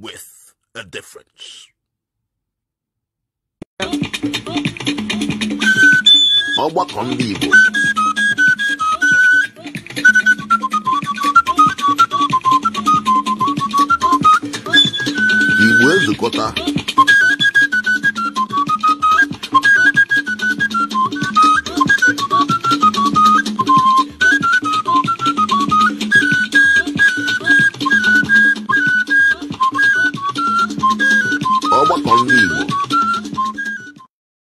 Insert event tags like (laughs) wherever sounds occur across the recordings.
with a difference. ọgbakọ ndị Where's the ezukọta conmigo.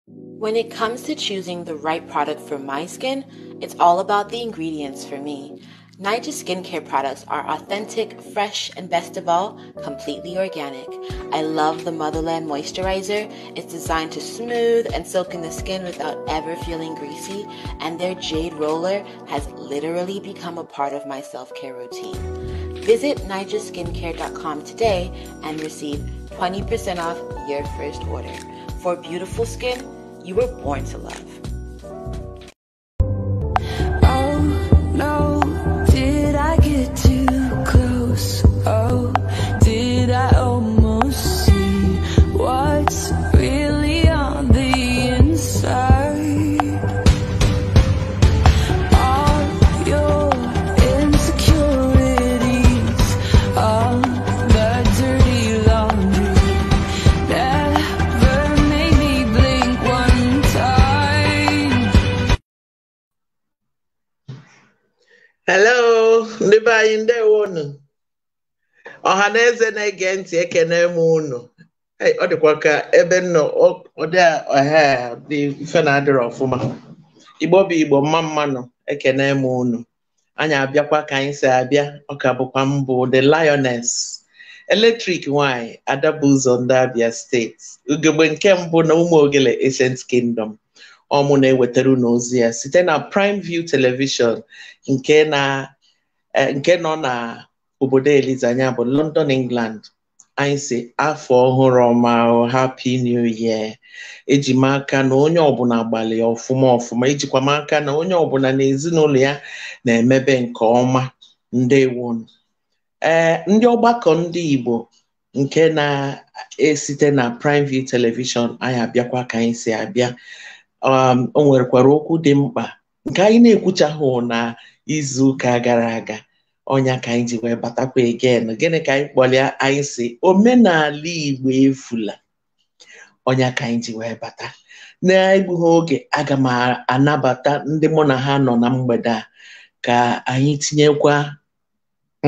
When it comes to choosing the right product for my skin, it's all about the ingredients for me. Niger skincare products are authentic, fresh, and best of all, completely organic. I love the Motherland Moisturizer. It's designed to smooth and soak in the skin without ever feeling greasy, and their Jade Roller has literally become a part of my self care routine. Visit nigerskincare.com today and receive 20% off your first order. For beautiful skin, you were born to love. anyị ndewo unu ọha na eze na-ege ntị ekene m unu ọ dịkwa ka ebe nnọ ọdị ọha dị mfe na adịrị ọfụma igbo bụ igbo mma mmanụ ekene m unu anyị abịakwa ka anyị si abịa ka bụkwa mbụ the lioness eletrik nwanyị adabụzọ ndị abịa steeti ugegbe nke mbụ na ụmụ ogele ancient kingdom ọmụ na-ewetara n'ozi ozi ya site na prime view television nke na Eh, nke nọ na obodo eliza bụ London England anyị si afọ ọhụrụ ọma oh, happy new year eji m aka na onye ọbụla gbalị ọfụma ọfụma ejikwa m aka na onye ọbụla na ezinụlọ ya na-emebe nke ọma ndewo ee eh, ndị ọgbakọ ndị Igbo nke na-esite na Prime View telivishọn anyị abịakwa ka anyị si abịa um, o nwerekwara okwu dị mkpa nke anyị na-ekwuchaghụ na izu ụka gara aga ọnya ka anyị ji wee batakwa egen gịnị ka anyị kpọlịa anyị si omenala igbo efula ọnya ka anyị ji wee bata na ha oge aga m anabata ndị mụ na ha nọ na mgbede a ka anyị tinyekwa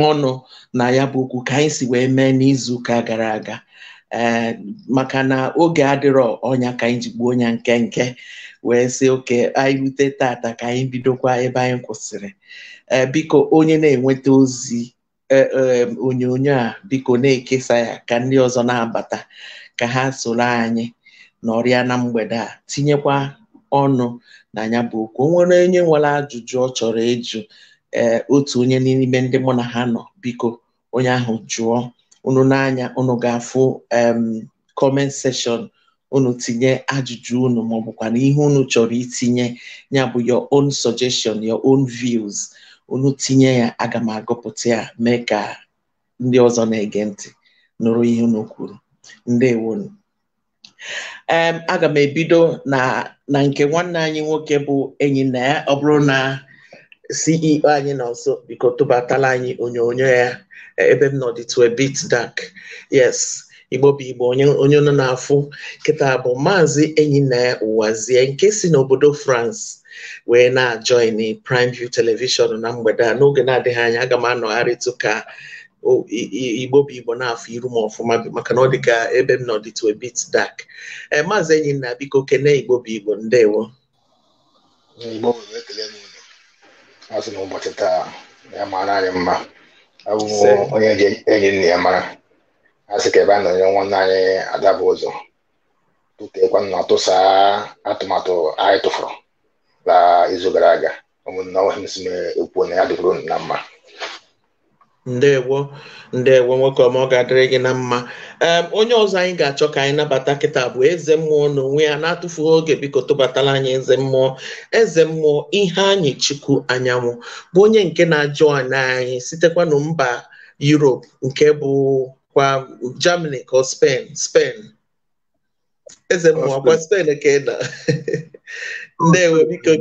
ọnụ na ya bụ okwu ka anyị si wee mee n'izuụka gara aga Eh, maka na oge adịrọ ọnya ka anyị ji gbuo onye nke nke wee sị oke anyị rute tata ka anyị bidokwa ebe anyị kwụsịrị eh, biko onye na-enweta ozi eh, onyonyo a biko na-ekesa ya ka ndị ọzọ na-abata ka ha soro anyị nọrịa na mgbede a tinyekwa ọnụ na ya bụ okwu onwere onye nwere ajụjụ ọ chọrọ ịjụ otu onye n'ime ndị mụ na ha nọ biko onye ahụ jụọ unu n'anya unu ga-afụ comment session unu tinye ajụjụ unu maọbụkwa na ihe unu chọrọ itinye ya bụ your own suggestion your own views unu tinye ya aga m agụpụta ya mee ka ndị ọzọ na-ege ntị nụrụ ihe unu kwuru ndewonu em aga m ebido na nke nwanne anyị nwoke bụ enyi na ya ọ bụrụ na CEO anyị nọ nso biko tụbatala anyị onyonyo ya ebe m nọ dịtụ a bit dark yes igbo bụ igbo onye nọ n'afụ kịta bụ maazị enyi na Uwazie nke si n'obodo France wee na-ajoin Prime View Television na mgbede a n'oge na-adịghị anya aga m anọgharịtụ ka igbo bụ igbo na afọ iru ma ọfụma maka na ọ dị ka ebe m nọ bit dark ee eh, maazị Enyinaya biko kene igbo bụ igbo ndewo ụbọchị taa ya mara anyị mma abụghị onye enyi nna ya mara a sị ka ebe a nọnyere nwanne anyị adabụ ụzọ tụteekwa nna tụsa atụmatụ anyị tụfụrụ la izu gara aga ụmụnna ọhịa m si ekwu na ya dịbụrụ na mma ndewo ndewo nwoke ọma ọ ga-adịrị gị na mma onye ọzọ anyị ga-achọ ka anyị nabata kịta bụ eze mmụọ onwe ya na-atụfughị oge biko tụbatala anyị eze mmụọ eze mmụọ ihe anyị chukwu anyanwụ bụ onye nke na-ajụ anyị sitekwa na mba Europe nke bụ kwa Germany ka Spain eze mmụọ kwa Spain ka (laughs) ndewo biko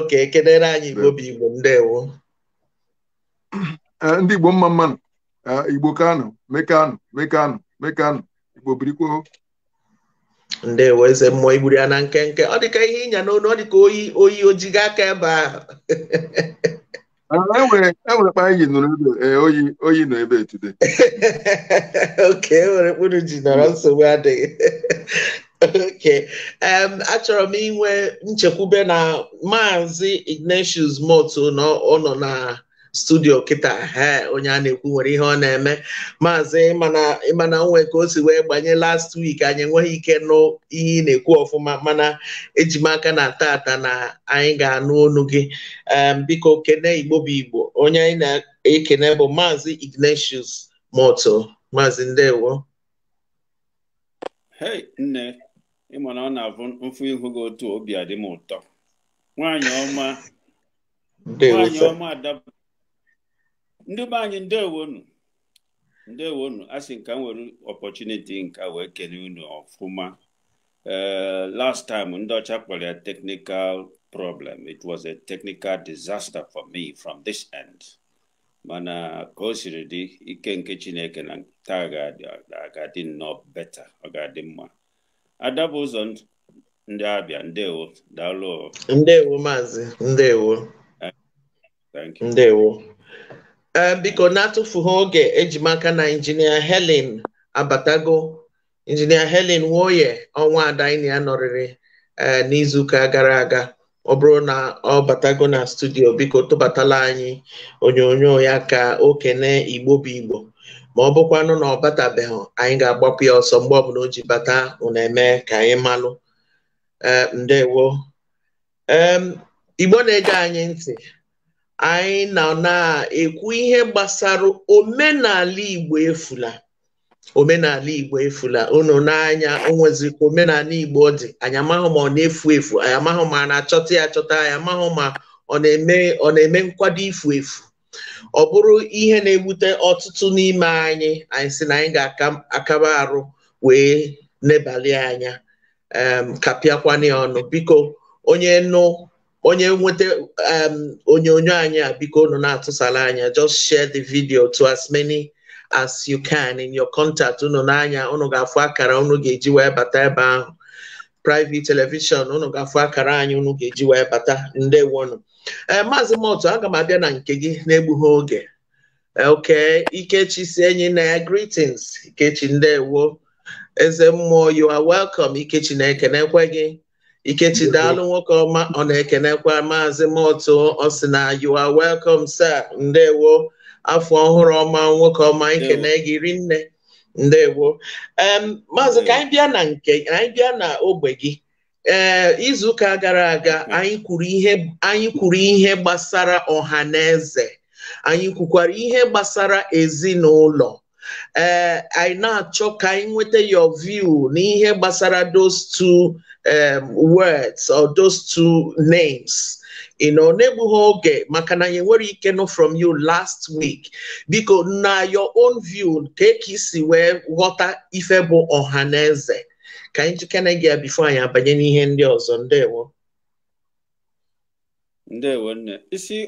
oke kedere anyị igbo bụ igbo ndewo Eh, ndị Igbo mma mmanụ eh, Igbo Kano mekanụ mekanụ mekanụ Igbo birikwuo ndewo eze mmụọ igburu ya na nkenke ọ dịka ihe ịnya n'onu ọ dịka oyi oyi ojiga aka ebe ahụ enwere eh, e enwere kpa anyị nụrụ ebe oyi oyi nọ ebe etude (laughs) oke enwere mkpụrụ ji nọrọ nsogbu adịghị (laughs) oke achọrọ m inwe nchekwube na maazị Ignatius Motu na ọ nọ na studio kịta he onye a na-ekwu nwere ihe ọ na-eme maazị ịmana onwe ka o si wee gbanye last week anyị enweghị ike nụ ihe ị na-ekwu ọfụma mana ejimaka aka na tata na anyị ga-anụ ọnụ gị biko kene igbo bụ igbo onye anyị na-ekene bụ maazị Ignatius Moto maazị ndewo hey nne ịma na ọ na-abụ mfụ ihu gị otu obi adị m ụtọ nwanyị ọma nwaanyị ọma adabụ ndị be anyị ndewonu ndewonu a sị nka m nwere ọpọchuniti nka wee kene unu ọfụma eh, last time ndị ọcha kpọrọ ya technical problem it was a technical disaster for me from this end mana ka o siri dị ike nke chineke na taa ga-adị nnọọ beta ọ ga-adị mma adabụ ụzọ ndị abịa ndewo daalụ ndewo maazị ndewo eh, Eh, biko na-atụfughị oge ejimaka na injinia Helen abatago injinia Helen Nwoye ọnwa ada anyị ya nọrịrị eh, n'izuụka gara aga ọ bụrụ na ọ batago na studio biko tụbatala anyị onyonyo ya ka o kene igbo bụ igbo ma ọ bụkwanụ na ọ batabeghị anyị ga-agbapụ ya ọsọ mgbe ọbụla o ji bata ụna ka anyị malụ eh, ndewo igbo na-ege anyị ntị anyị nọ na-ekwu ihe gbasara omenala Igbo efula omenala Igbo efula unu n'anya onwezi ka omenala Igbo dị anyị amaghị ma ọ na-efu efu anyị amaghị ma a na-achọta ya achọta anyị amaghị ma ọ na-eme ọ na-eme nkwado ifu efu ọ bụrụ ihe na-ebute ọtụtụ n'ime anyị anyị si na anyị ga-akaba arụ wee nebalị anya ya ọnụ biko onye nụ onye nweta um, onyonyo anyị a biko unu na-atụsala anya just share the video to as many as you can in your contact unu n'anya unu ga-afụ akara unu ga-eji wee bata ebe ahụ private television unu ga-afụ akara anyị unu ga-eji wee bata ndewonu ee eh, maazị motu aga m abịa na nke gị na-egbughị oge eh, oke ikechi si enyi na ya greetings ikechi ndewo eze mmụọ you are welcome ikechi na-ekenekwe gị Ikechi daalụ nwoke ọma ọ na-ekenekwa maazị Motu na you are welcome sir ndewo afọ ọhụrụ ọma nwoke ọma ikene gị nne ndewo maazị ka anyị bịa na nke anyị bịa na ogbe gị ee izuụka gara aga mhm. anyị kwuru ihe anyị kwuru ihe gbasara ọha na eze anyị kwukwara ihe gbasara ezinụlọ ee anyị na-achọ ka anyị nweta your view n'ihe gbasara those two um, words or those two names. You know, Nebuhoge, Makana Yeweri Keno from you last week. Because now your own view, take see where water ifebo ohaneze. Ka anyị jikere can ya bifo I abanye n'ihe any ọzọ ndewo ndewo nne isi one. You see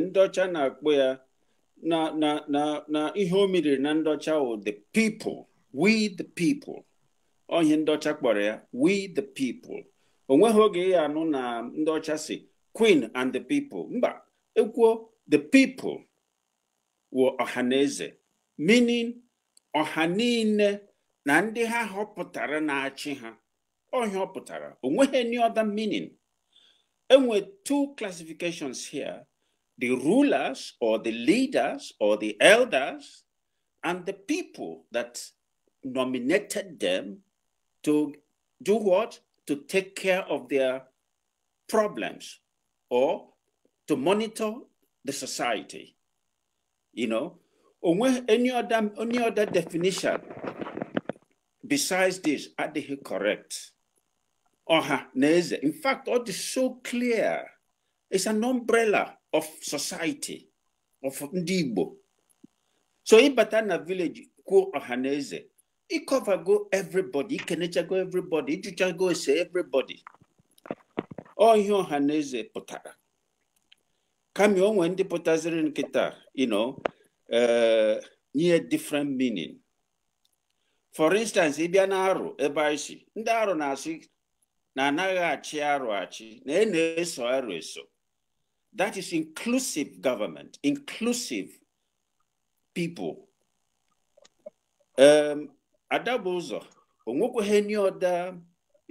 ohaneze. ocha ọcha na-akpọ ya na na na na ihe o meriri na ndị the people we the people on ihe ndị ọcha kpọrọ ya we the people On oge ya anụ na ndị ọcha si queen and the people mba ekwuo the people wụ ọhaneze meaning ọha niile na ndị ha họpụtara na-achị ha ọhịa ọ any other meaning enwe two classifications here the rulers or the leaders or the elders and the people that nominated them to do what? To take care of their problems or to monitor the society. You know, or any other, any other definition besides this, are they correct? Uh-huh. In fact, all is so clear. It's an umbrella of society, of Ndibo. So in Batana village, Ku Ohaneze, ịkọvago everybody ikenechago everybody ịjụchago ese everybody ọ oh, ihe ọha na eze eh, pụtara kama onwe ndị pụtaziri nkịta you know uh, nye different meaning for instance ịbịa na arụ ebe anyị ndị arụ na-asị na anaghị achị arụ achị na ị na-eso arụ eso that is inclusive government inclusive people um, ada bụ ụzọ onwekweghị nye ọda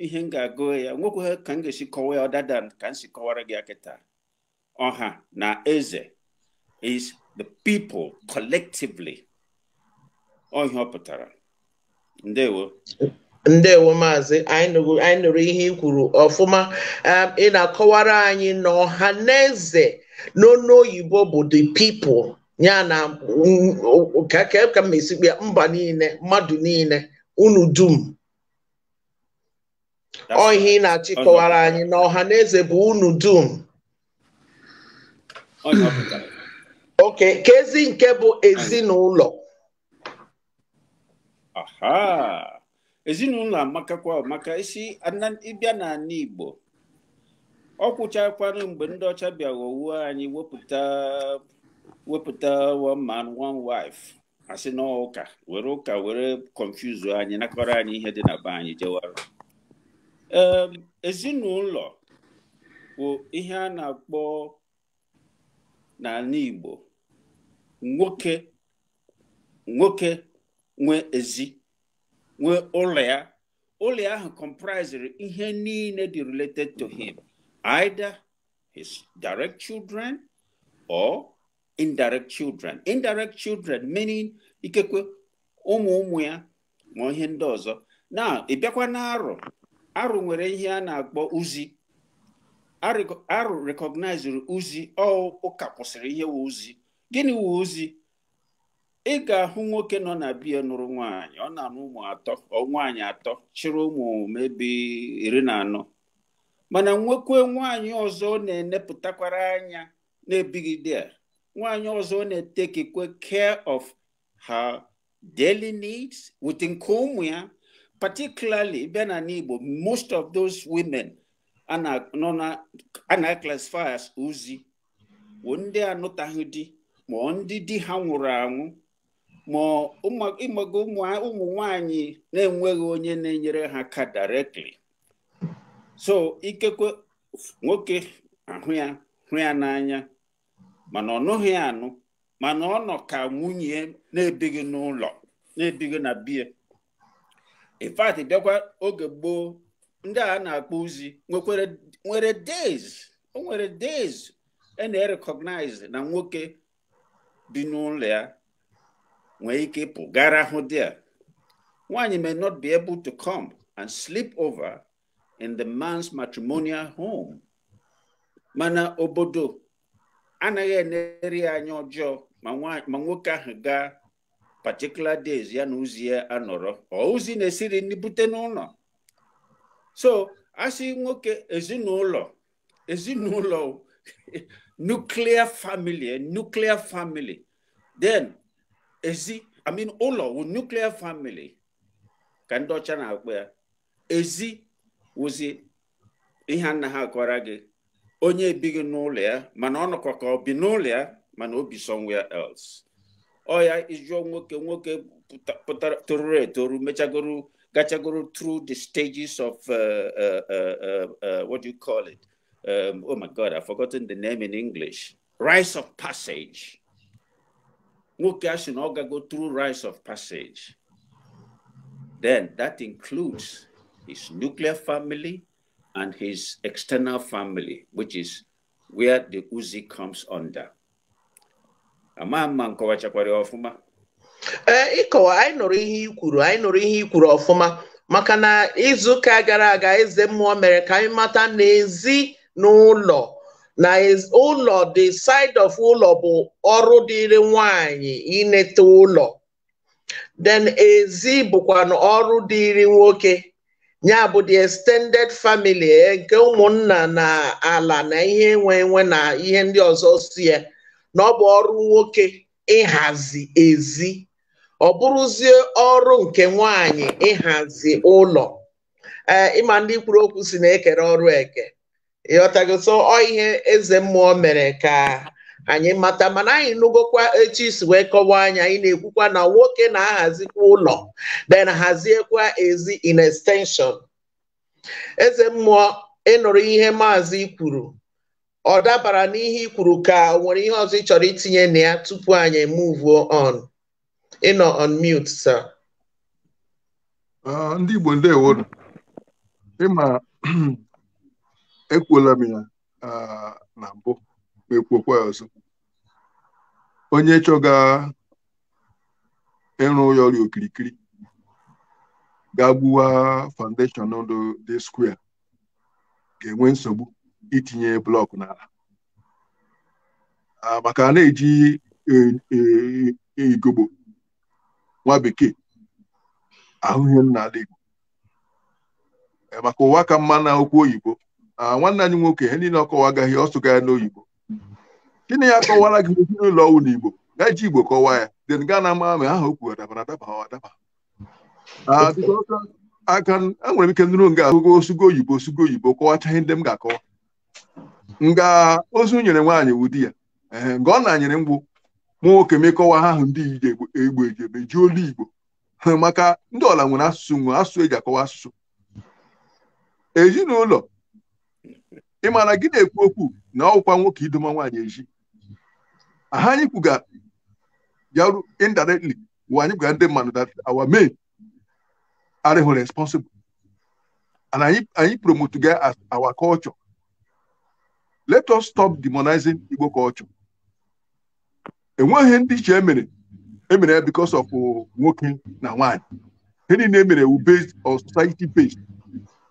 ihe m ga-agụ ya onwekweghị ka m ga-esi kọwaa ya ọdada ka m si kọwara gị akịta ọha na eze is the people collectively ọhịa ọ pụtara ndewo ndewo maazị anyị nụrụ ihe i kwuru ọfụma um, ị na-akọwara anyị na ọha na eze n'ọnụ oyibo bụ the people ya na mm, mm, ka m esikpe mba niile mmadụ niile unu dum ọhịa ị na-achịkọwara anyị na ọha na eze bụ unu dum oke ka ezi nke bụ ezinụlọ ezinụlọ amakakwa maka isi ịbịa n'ala Igbo ọ kwụchakwanụ mgbe ndị ọcha bịa anyị wepụta wepụta one man one wife asị na ụka were ụka were confuse anyị nakọrọ anyị ihe dị na be anyị jewara ezinụlọ bụ ihe a na-akpọ n'ala Igbo nwoke nwoke nwe ezi nwee ụlọ ya ụlọ ahụ comprisere ihe niile dị related to him either his direct children or indirect children indirect children meaning ikekwe ụmụ ụmụ ya ma ihe ndị ọzọ na ịbịakwa na arụ arụ nwere ihe a na-akpọ uzi arụ recognizere uzi ụka kwụsịrị ihe wu uzi gịnị wu uzi ị ga-ahụ nwoke nọ na biya nụrụ nwaanyị ọ na-anụ ụmụ atọ nwaanyị atọ chịrị ụmụ mebi iri na anọ mana nwekwe nwaanyị ọzọ na-enepụtakwara anya na a. nwanyi ọzọ na-etekikwe care of her daily needs with nke ụmụ ya particularly bịa na n'Igbo most of those women a na classify as ozi bụ ndị anụtaghị di ma ndị di ha nwụrụ anwụ ma ịmaga ụmụ nwanyị na-enweghị onye na-enyere ha aka directly so ikekwe nwoke ahụ ya hụ ya n'anya mana ọ nụghị anụ mana ọ nọ ka nwunye na-ebighị n'ụlọ na-ebighị na bie ifat bịakwa oge gboo ndị a na-akpọ ozi nwere days o nwere days a e na-erekọgnaiz na nwoke bi n'ụlọ ya nwee ike ịpụ gara ahụ di ya nwaanyị may not be able to come and sleep over in the man's matrimonial home mana obodo anaghị enere ya anya ọjọọ ma nwoke ahụ gaa particular days ya na ozi ya anọrọ ozi na-esiri nri bute n'ụlọ so asị nwoke ezinụlọ ezinụlọ nuclear family nuklia family ezi amin ụlọ wu nuklia famili ka ndị ọcha na-akpọ ya ezi wụzi ihe a na ha akọra gị onye ebighị n'ụlọ ya mana ọ nọkwa ka ọ bi n'ụlọ ya mana somewhere else ọ ya ịjụọ nwoke nwoke pụtara toruru etoru mechagoro gachagoro through the stages of uh, uh, uh, uh, what do you call it um, oh my god i've forgotten the name in english rise of passage nwoke asị na ọ gago through rise of passage then that includes his nuclear family and his external family, which is where the Uzi comes under. ma mma nkọwachakwara ọfụma ee eh, ịkọwa anyị nụrụ ihe ikwuru anyị nụrụ ihe ikwuru ọfụma maka na izuụka gara aga eze mmụọ mere ka anyị mata na n'ụlọ na ụlọ the side of ụlọ bụ ọrụ dịrị nwanyị inete ụlọ then ezi bụkwa ọrụ dịrị nwoke ya bụ the extended family eh, nke ụmụnna na ala na ihe enwe enwe na ihe ndị ọzọ si ya eh, na ọ bụ ọrụ nwoke ịhazi ezi ọ bụrụzie ọrụ nke nwanyị ịhazi ụlọ ee eh, ịma ndị kwuru okwu si na-ekere ọrụ eke ịghọtago so ọ ihe eze mmụọ mere ka anyị mata mana anyị nụgokwa etu isi wee kọwaa anya anyị na-ekwukwa na nwoke na-ahazikwa ụlọ then haziekwa ezi in extension eze mmụọ ịnụrụ ihe maazị kwuru ọ dabara n'ihe kwuru ka o nwere ihe ọzọ ị chọrọ itinye na ya tupu anyị move on ịnọ on mute sir ndị Igbo ndewo ịma (clears throat) ekwuola m ya uh, na mbụ ekwokwa ọzọ onye chọga ịrụ ya ọrịa okirikiri ga gbuwa foundation ndụ dị square ga-enwe nsogbu itinye blọkụ n'ala ah, maka na-eji e, e, e, igbo nwa bekee ahụhụ n'ala igbo eh, maka ụwa ka mma na okwu oyibo ah, nwanne anyị nwoke ihe niile ọkọwa agaghị ọ n'oyibo gịnị ya kọwara gị n'ụlọ ọwụ n'Igbo igbo ji igbo kọwaa ya den gaa na ama ma aha okwu adaba adaba adaba aka enwere m ike nụrụ nga ahụgo osugo oyibo osugo oyibo kọwachaghị ndị m ga-akọwa nga ozu nyere nwaanyị ụdị ya ee nga ọ na-anyere mgbụ mụ nwoke mekọwa ha ahụ ndị egbo eji eme ji olu igbo maka ndị ọla nwere asụsụ nwere asụsụ eji akọwa asụsụ ezinụlọ ị gị na-ekwu okwu na ọkwa nwoke idoma nwaanyị eji aha anyị kwuga yaru indirectly wụ anyị kwuga ndị mmadụ that our men arịghị responsible and anyị anyị promote ga as our culture let us stop demonizing Igbo culture enweghị ndị iche emere emere because of uh, nwoke na nwaanyị ihe na emere wu based on society based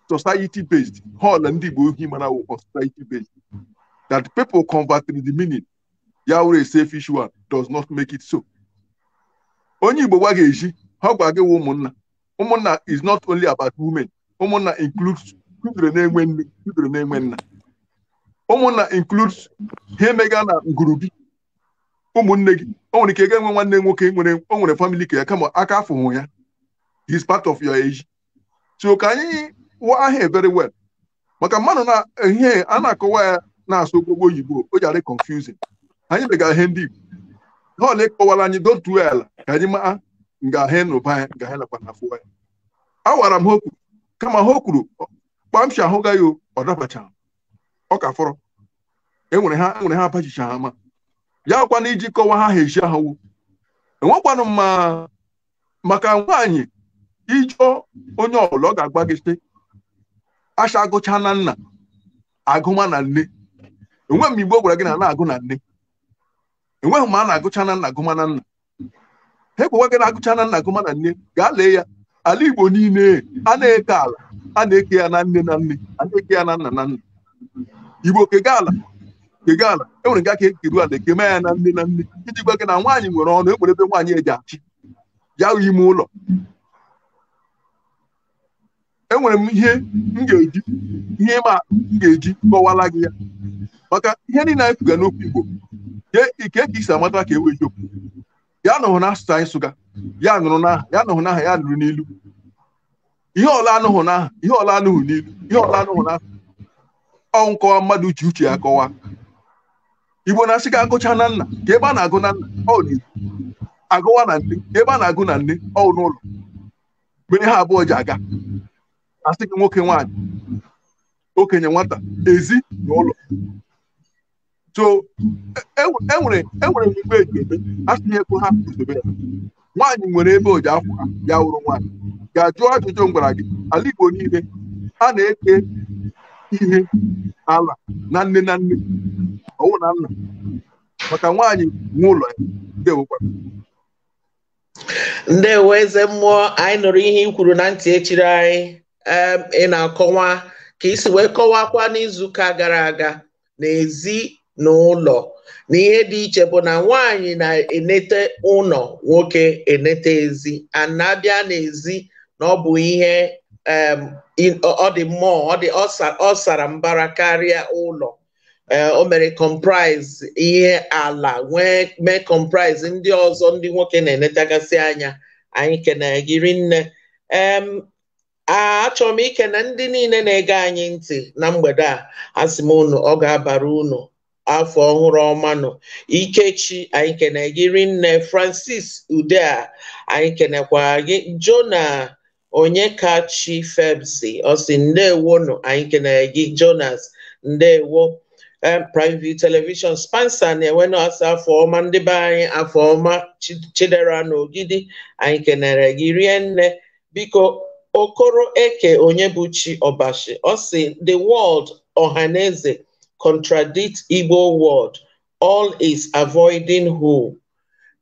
society based hall ndị Igbo ohi mana wu on society based that people convert in the meaning ya were safe fish one does not make it so onye igbo gwa ga-eji ha gwa ụmụnna ụmụnna is not only about women ụmụnna includes children na-enwe nne children na-enwe nna ụmụnna includes ha emega na ngurubi ụmụnne gị o nwere ike ga-enwe nwanne nwoke nwere o nwere family ka ya kama aka afụhụ ya is part of your age so ka anyị wụọ ahịa very well maka mmadụ na ihe a na-akọwa ya na-asụ okpogbo oyibo o ji adị confusing anyị begara ihe ndị Igbo ha ole kọwara anyị dotu ala ka anyị maa ngahe n'ụba ya ngahe nakwa na ya awara m ha okwu kama ha kwuru kpamshi ahụgaghị o ọ dabacha ọ ka fọrọ enwere ha enwere ha abachicha ha ma ya kwana iji kọwa ha ha eji ahụwo enwekwanụ mma maka nwaanyị ijụọ onye ọbụla ọ ga agba gị acha agụcha na nna agụma na nne Enwe m igbo gwara gị na na-agụ na nne enweghị ma a na-agụcha na nna gụma na nna ha ekwewa gị na-agụcha na nna gụma na nne gaa lee ya ala igbo niile a na-eke ala a na-eke ya na nne na nne a na-eke ya na nna na nna igbo kega ala kega ala enwere nga aka ekeru ala ekeme ya na nne na nne iji gwa gị na nwaanyị nwere ọnụ e nwere ebe nwaanyị eji achị ya ime ụlọ enwere m ihe m ga-eji ihe ịma m ga-eji kọwala gị ya maka ihe niile anyị sụga n'okwu Igbo ike ka isi amata ka e wee ya nụrụ na asụsụ anyị sụga ya nụrụ n'aha ya nụrụ n'aha ya nụrụ n'ilu ihe ọla anụhụ n'aha ihe ọla anụhụ n'ilu ihe ọla anụhụ n'aha ọ nkọwa mmadụ uche uche ya kọwa Igbo na-asị ka agụcha na nna ka ebe a na-agụ na nna ọ n'ilu agụwa na nne ka ebe a na-agụ na nne ọ n'ụlọ mgbe ha abụọ ji aga asị gị nwoke nwaanyị okenye nwata ezi na ụlọ so enwere e, e enwere igbe eji eme asịghị ego ha zobe ya nwaanyị nwere ebe oji akwụ ya wụrụ nwaanyị ga-ajụ ajụjụ ngwara gị ala Igbo niile a na-eke ihe ala na nne na nne ọwụ na nna maka nwaanyị nwe ụlọ ya ndewokwa ndewo eze mmụọ anyị nụrụ ihe i kwuru na ntị echiri anyị ị na-akọwa ka isi wee kọwakwa n'izuụka gara aga n'ezi n'ụlọ na ihe dị iche bụ na nwaanyị na-enete ụlọ nwoke enete ezi ana n'ezi na ọ bụ ihe ọ dị mmụọ ọ sara mbara karịa ụlọ e, o mere comprise ihe ala nwee mee comprise ndị ọzọ ndị nwoke na-enetagasị anya anyị kenere gị rinne achọrọ m ikene ndị niile na-ege anyị ntị na mgbede a asị m unu ọ ga-abara unu afọ ọhụrụ ọmanụ ikechi anyị kene gị rinne francis udea anyị kenekwa gị jona onyekachi febsi ọsi nọ, anyị kenere gị jonas ndewo private television spansa na enwe asị afọ ọma ndị be anyị afọ ọma chidera na ogidi anyị kenere gị rie nne biko okoro eke onye Chi ọbashi ọ si the world ọhaneze contradict Igbo word. All is avoiding who.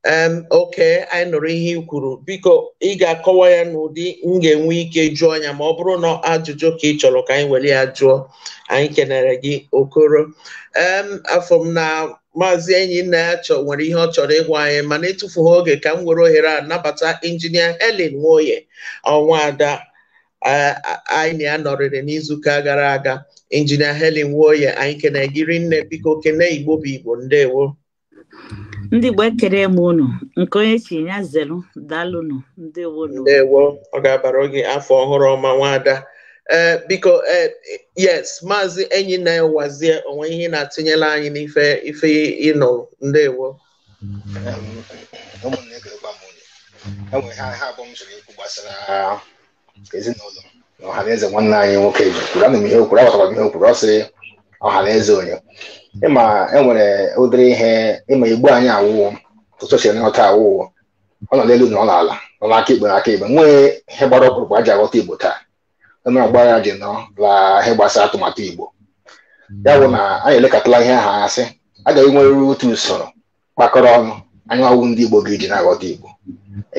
Um, okay, anyị nụrụ ihe kwuru biko ị ga-akọwa ya n'ụdị m ga-enwe ike jụọ anya ma ọ bụrụ na ajụjụ ka ị chọrọ ka anyị were ya jụọ anyị kenere gị okoro um, afọ na maazị enyi nna ya chọ nwere ihe ọ chọrọ ịgwa anyị mana etufughị oge ka m were oghere a nabata injinia Helen Nwoye ọnwa ada anyị na anọrịrị n'izuka gara aga injinia Helen Nwoye anyị kene gịrị nne biko kene Igbo bụ Igbo ndewo ndị Igbo ekere m unu nke onye chi ya zelu dalụnụ ndewo ndewo ọ ga-abara oge afọ ọhụrụ ọma nwaada e, biko e, yes maazị enyi na-ewazie onwe ihe na-atụnyela anyị n'ife ife ịnọ ndewo ụmụnne ga-egwa m onye enwe ha abụọ m chọrọ ikwu gbasara ezinụlọ na ọhaneze nwanne anyị nwoke ji kwuru ana m ihe okwuru agbatara m ihe okwuru ọ ọhaneze onye ịma enwere ụdịrị ihe ịma igbo anyị awụwo ụtụtụ si nghọta awụwo ọ nọ n'elu na ọ n'ala nọ n'aka ikpe n'aka ikpe nwee ihe gbara ọkpụrụkpụ aji aghọta igbo taa onye ọgba ji nọ la ihe gbasara atụmatụ igbo ya bụ na anyị elekọtala ihe ahụ asị agaghị nweruru otu usoro kpakọrọ ọnụ anyị ọwụ ndị igbo ga-eji na-aghọta igbo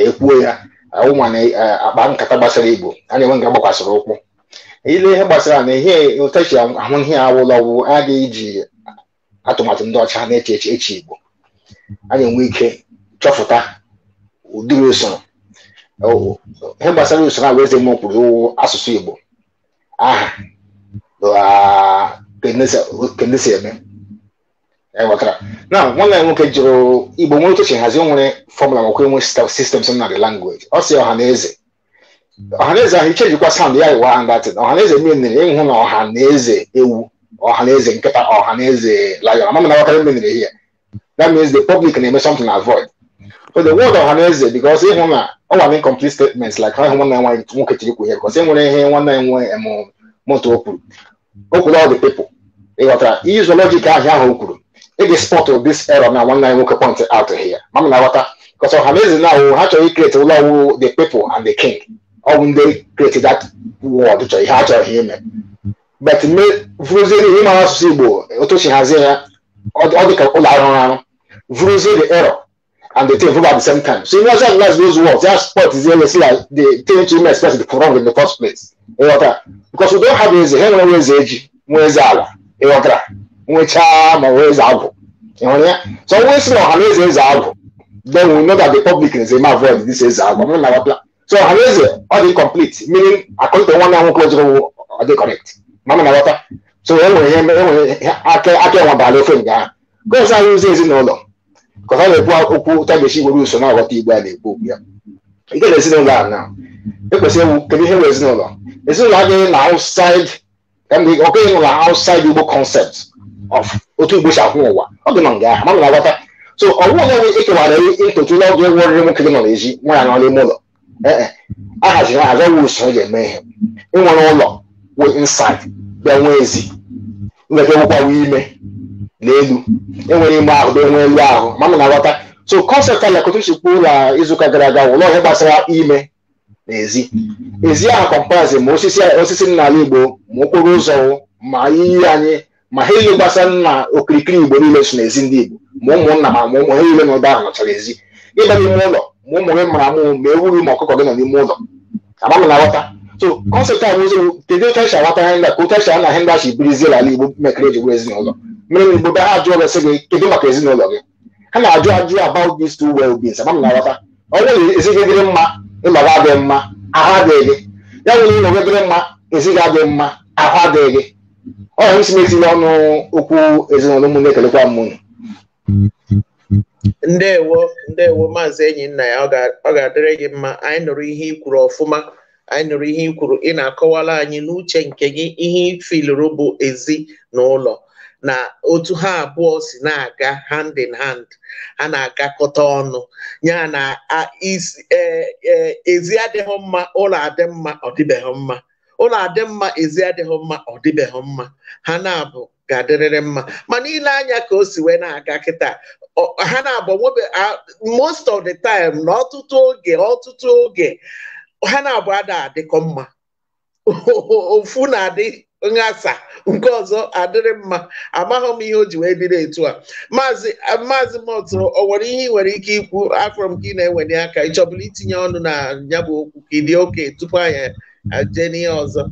ekwuo ya ụmụ eh, akpa nkata gbasara igbo a na-enwe nga gbakwasịrị ụkwụ ile ihe gbasara na ihe ụtachi ahụ ihe awụla ọgwụ agaghị atụmatụ ndị ọcha na-eche eche eche igbo a na-enwe ike chọpụta ụdịrị usoro ihe gbasara usoro ahụ eze mmụọ kwuru asụsụ igbo aha ah, kendesi e eme na nwanne nwoke jụrụ igbo nwere otu si nwere fọmụla makwa enwe sistemsị na the language ọ si ọha na eze ọha na eze ahụ sand ya iwa handatin ọha na eze menere ịhụ na ọha na eze ewu ọha na eze nkịta ọha na eze na wakarị menere ihe that means the public na-eme something void so the word ọha na eze ịhụ na ọ nwere incomplete statements like ha ịhụ nwanne nwoke chiri kwu ihe ihe nwanne nwe kwuru e dey spot of this error na nwanne anyị nwoke point out here Mama, m na-aghọta because ọhaneze na ahụ ha chọrọ ikrete ụlọ ọwụ the people and the king ọ bụ ndị krete that word chọrọ ihe ha chọrọ ha ime but me vuruzie n'ihe ịmara asụsụ igbo otochi hazie ya ọ dịka ụlọ arụrụ arụ vuruzie the error and the thing at the same time so you know just those words that spot is really see like the thing to me express the wrong in the first place what? because we don't have eze ha enwere eze eji nwee eze ala ịghọtara nwechaa ma wee zaa agwụ ịhụrụ ya so onwe si na ọhanaeze eze agwụ then we know that the public is eme avoid this eze agwụ na wapla so ọhanaeze ọ dị complete meaning according to nwanne nwoke ojuru ọ dị correct mama na wata so e nwere enwere e aka enwa bala ofe nga ahụ gọọsị anyị ụzọ ezinụlọ ka ọ na-ekwu okwu tagechi nwere uso na aghọta igbo a na-ekwu okwu ya ike na ezinụlọ a na ekwesịrị ewu kedu ihe nwere ezinụlọ ezinụlọ adịghị na outside ọkụ ịnụ na igbo concept of otu igbo si akwụ ụwa ọ dị ma nga ahụ mana na-aghọta so ọ bụghị onye ekewara nketu n'ọgụ egwu oriri nwoke dị nọ n'ezi nwanyị nọ n'ime ụlọ ee e, a haziri haza nwe usoro ga-eme ihe ịnwere ụlọ wee insid bịa nwee ezi nweta nwekwawa ime na elu enwere ime ahụ bịa nwee elu ahụ mana na-aghọta so kọnsept ala kotu si kwuo na izuụka gara aga ụlọ ihe gbasara ime na ezi Ezi ahụ kọmparazin ma osisi osisi n'ala igbo ma okporo ụzọ ma iyi anyị ma ha ile gbasa nna okirikiri igbo niile so n'ezi ndị igbo ma ụmụnna ma ma ụmụ ha niile n'ụdọ ahụ nọchara ezi ịba n'ime ụlọ ma ụmụ gị mara amụ ma ewu ma ọkụkọ gị nọ n'ime ụlọ agbama na so kọnsept a nwụzi kedu otu esi aghọta ka otu esi birizie ala igbo mekere eji ezinụlọ mere na igbo be ha gị gị kedu maka ezinụlọ gị ha na-ajụ ajụ about these na ọ bụrụ mma adịghị mma mma ahụ adịghị ọ hụrụ isi m ọnụ okwu ezinụlọ m na m ndewo ndewo maazị enyi nna ya ọ ga-adịrị gị mma anyị nụrụ ihe i ọfụma anyị nụrụ ihe ikwuru ị na-akọwala anyị n'uche nke gị ihe ifiluru bụ ezi na ụlọ na otu ha abụọ si na-aga hand in hand ha na-agakọta ọnụ ya na e, e, ezi adịghị mma ụlọ adị mma ọ dịbeghị mma ụlọ adị mma ezi adịghị mma ọ dịbeghị mma ha na-abụ ga-adịrịrị mma mana ile anya ka o si wee na-aga kịta ha na-abụ most of the time na ọtụtụ oge ọtụtụ oge ha na-abụ ada adịkọ mma (laughs) ofu na-adị nghasa nke ọzọ adịrị mma amaghị m ihe o ji wee bido etu a maazị maazị mọtụ ọ nwere ihe ị nwere ike ikwu afọ ka ị na-enweli aka ịchọbụla itinye ọnụ na ya bụ okwu ka ịdị oke tupu anya Ajeni Ozo. ọzọ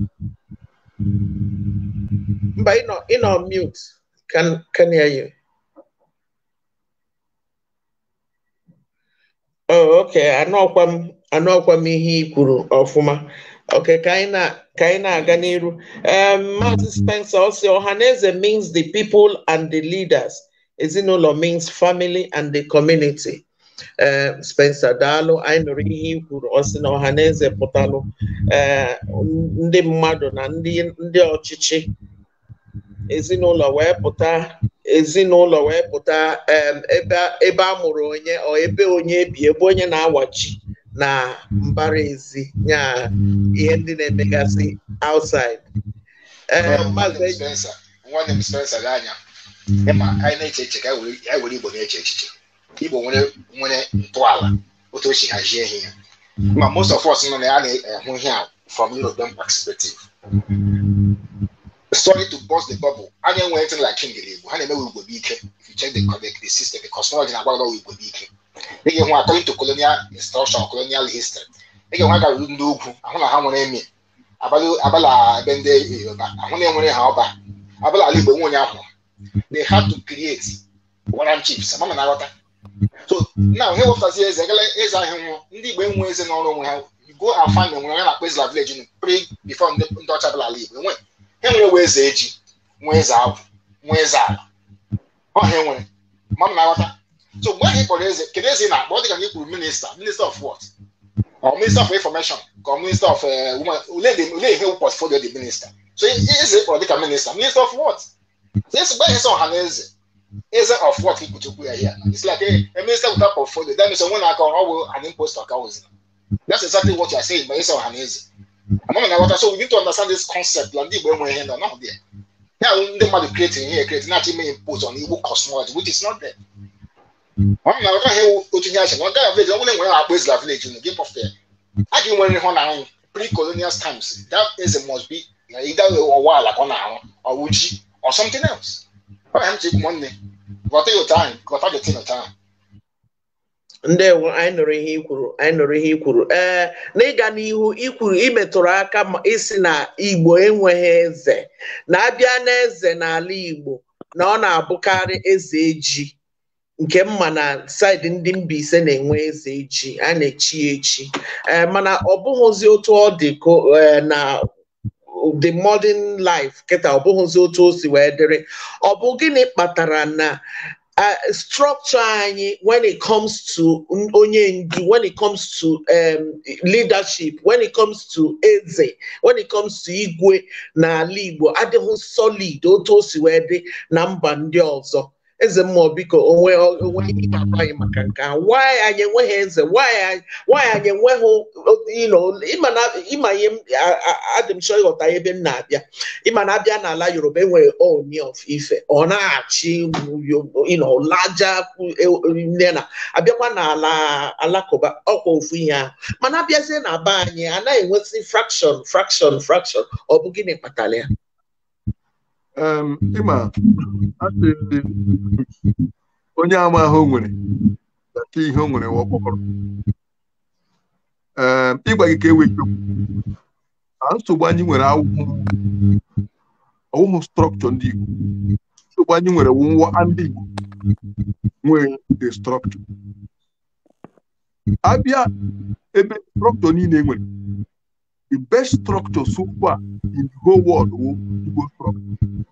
mba ịnọ mute can hear you oh okay anọkwa m anọkwa m ihe i kwuru ọfụma Okay, Kaina, Kaina Aganiru. Um, Mazi Spencer also, Ohaneze means the people and the leaders. Ezinụlọ means family and the community. Eh, Spencer daalụ anyị nụrụ ihe i kwuru ọ sị na ọha na eze pụtalụ eh, ndị mmadụ na ndị ọchịchị ezinụlọ wee pụta ezinụlọ wee pụta ebe a mụrụ onye ọ ebe onye bi ebe onye na-awachi na mbara ezi nya ihe ndị na-emegasị outside eh, Spencer nwanne m Spencer gị anya ịma anyị na-eche echiche ka anyị were Igbo na-eche echiche igbo nwere nwere ntọala otu o si hazie ihe ya ma most of us nọ na ya na-ahụ ihe a from European perspective sorry to burst the bubble Anya enwe tin like king igbo ha na-emewe igbo ike if you check the the, system the cosmology na-agwagwa igbo ike ị ga-enwe according to colonial instruction colonial history ị ga-enwe aga ruru ndị ugwu ahụ na ha nwere emi abala ebe ndị yoruba ahụ na enwere ha ọba abala ala igbo nwe onye ahụ they had to create warrant chiefs ama na na-aghọta So mm. now ihe wepụtazi eze ekele eze ahịa nwụọ ndị igbo enwe eze n'ọrụ onwe ha go and find enwere onye na-akpọ ezila village nu pre before ndị ọcha bịara ala igbo enwe enwere nwe eze eji nwe eze agwụ nwe eze ala ọha enwere ma m na-aghọta so mgbe anyị kpọrọ eze kedu eze ị na-akpọ ọ dị ka anyị kwuru minista minista of what or minister of information or minister of uh, women olee ihe portfolio dị minista so eze kpọrọ dịka minista minista of what so esi gba ihe sọ ọha na eze isn't of what Kutubu are here. It's like a, eh, a minister without portfolio. That means someone like oh, an imposter cows. That's exactly what you are saying, but it's not amazing. So we need to understand this concept. Like when we're here, not there. Now the man creating here, creating not even impose on evil cosmology, which is not there. I'm not can hear what you have. One guy village, one when I place la village in the game of there. I can when one now pre-colonial times. That is a must be either a while like on our or Uji or something else. I'm taking money. ghọta ya otu ghọta getin Ndị enwe anyị nụrụ ihe ikwuru anyị nụrụ ikwuru ee n'ịga n'ihu ikwuru imetụrụ aka ma isi na igbo enweghị eze na-abịa n'eze n'ala igbo na ọ na-abụkarị eze eji nke mma na saịdị ndị mba ise na-enwe eze eji a na-echi echi mana ọ bụghịzi otu ọ dị e, na the modern life kịta ọ bụghịzi otu o si wee dịrị ọ bụ gịnị kpatara na structure anyị when it comes to onye ndu when it comes to um, leadership when it comes to eze when it comes to igwe na Igbo adịghị solid otu o si wee dị na mba ndị ọzọ eze mmụọ biko onwe onwe ihe ịgaba anyị maka nke nwaanyị anyị enweghị eze nwaanyị anyị enweghị ịma ihe adị m chọ ịghọta ebe m na-abịa ịma na abịa n'ala yoruba enwere oni of ife ọ na-achị laja e, nne na abịakwa n'ala alakụba ọkwa ofu ihe ahụ mana abịazie na be anyị anaghị enwesị frakshọn frakshọn frakshọn ọ bụ gịnị kpatara ya ịma asị onye ama ahụ nwere nke ihe o nwere ọkpọrọ ee ịgwa gị ka e wee chekwu nsogbu anyị nwere ọwụhụ strọkchọ ndị Igbo nsogbu anyị nwere nwụwa ndị Igbo nwee dị strọkchọ abịa ebe strọkchọ niile e nwere The best structure so far in the whole world will go from.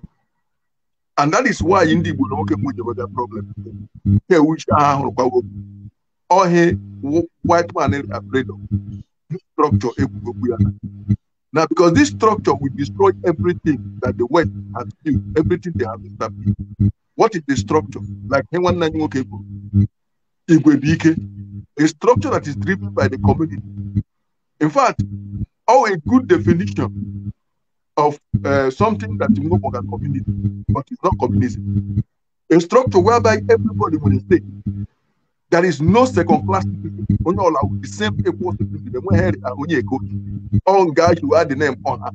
And that is why India will not get with that problem. Here which are or white man is afraid of this structure. Now, because this structure will destroy everything that the West has built, everything they have established. What is the structure? Like Hewan It will be a structure that is driven by the community. In fact, or a good definition of uh, something that you know as but it's not communism. A structure whereby everybody will say There is no second class people. Only all the same people. The one here and only a coach. All guys who had the name on her.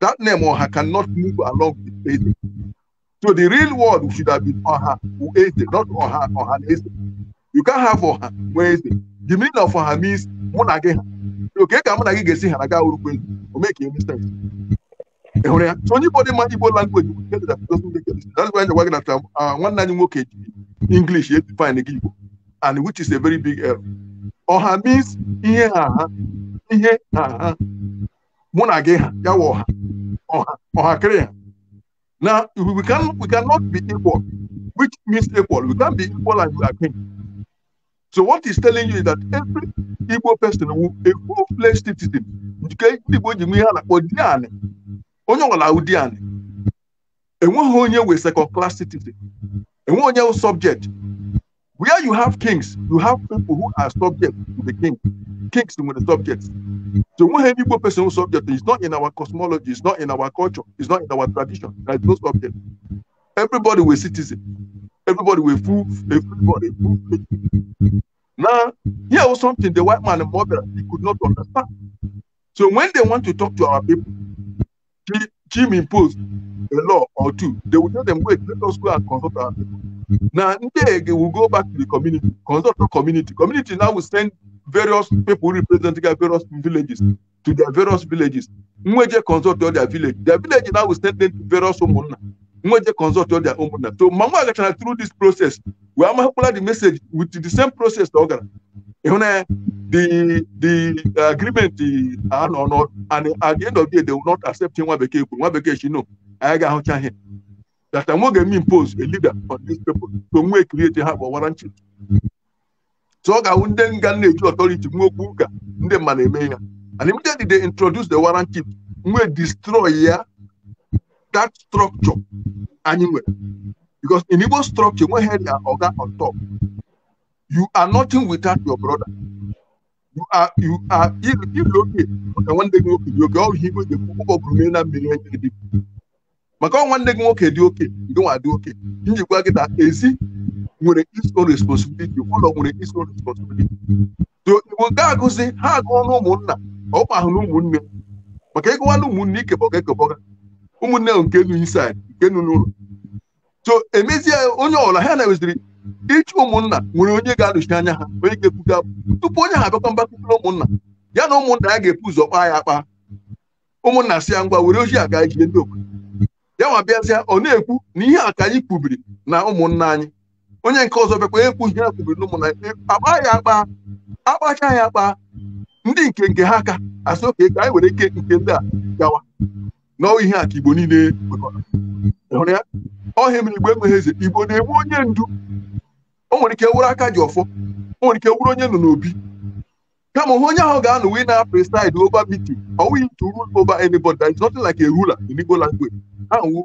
That name on her cannot move along with anything. So the real world should have been on her, who is it, not on her, on her. You can't have on her. Where is it? The meaning of on her means one again. oke ka mụ na gị ga-esi hara gaa orukwe ndụ o mee ka understand ị hụrụ ya so onye igbo dị mma igbo langweji gwa gị na um, uh, nwanne anyị nwoke ji english edefine gị igbo and which is a very big error uh, ọha means ihe ha ha ihe ha ha mụ na gị ha ya wụ ọha ọha ọhakịrị ha na we, can, we cannot be equal which means equal we can be equal and you are king So what he's telling you is that every Igbo person who a full-fledged citizen nke Igbo ji ihe a na-akpọ di anị onye ọbụla ụdị anị enweghị onye second class citizen enweghị onye wụ subject where you have kings you have people who are subject to the king kings to the subjects so enweghị any Igbo person wụ subject is not in our cosmology is not in our culture is not in our tradition there is no subject everybody wee citizen everybody were full, everybody full. Now, here was something the white man and mother he could not understand. So when they want to talk to our people, Jim imposed a law or two. They would tell them, wait, let us go and consult our people. Now, they will go back to the community, consult the community. Community now will send various people representing various villages to their various villages. Mweje consult all their village. Their village now will send them to various homeowners. nwa je consult their own mother so mgbe nwa gachara through this process We wee amakwala the message with the same process ọ gara ịhụ e na the the agreement anọ nọ and at the end of the day they will not accept nwa bekee kwuru nwa bekee shi no anyị ga-ahụcha ihe that I'm going to impose a leader on these people to we create a have a warranty. So I would then get authority and then they introduce the warranty, we destroy ya that structure anyị nwere because in Igbo structure nweghị ya oga on top you are nothing without your brother you are you are ilokee maka nwanne gị nwoke dị oke ọrụ ihe igwe ga-ekwu ụgbọ bụrụ na mmiri enye dị maka ọ nwanne gị nwoke dị oke nwa dị oke njikwa gị na ezi nwere its own responsibility ụlọ nwere its own responsibility so igbo ga-agụzi ha agụọ na ụmụnna ọ ahụ na ụmụnne maka ịgụwa na ụmụnne ikebọga ekebọga ụmụnne nke nụ inside nke nụ n'ụlọ so emezie onye ọbụla ha na-eweziri ịchụ ụmụnna nwere onye ga-anọchi anya ha onye ga-ebuga tupu onye ha abịakwa mgbakọkọrọ ụmụnna ya na ụmụnna ya ga-epu ụzọ kpaa ya akpa ụmụnna si ya ngwa were ozi aga ijie ndị obodo ya nwa bịazịa ọ na-ekwu na ihe a ka anyị kwubiri na ụmụnna anyị onye nke ọzọ bịakwa ekwu ihe a kwubiri na ụmụnna anyị akpa ya akpa akpacha ya akpa ndị nke nke ha aka asị oke ka anyị were ike nke ndị a gawa n'ọ ihe a igbo niile hụrụ ya ọhịa mere igbo emeghe eze igbo na-enwe onye ndu o nwere ike wụrụ aka ji ọfọ o nwere ike wụrụ onye nọ n'obi kama hụ onye ahụ ga-anọ wee na preside ova meeting ọ wụghị to rule over anybody there is nothing like a ruler in Igbo language ahụ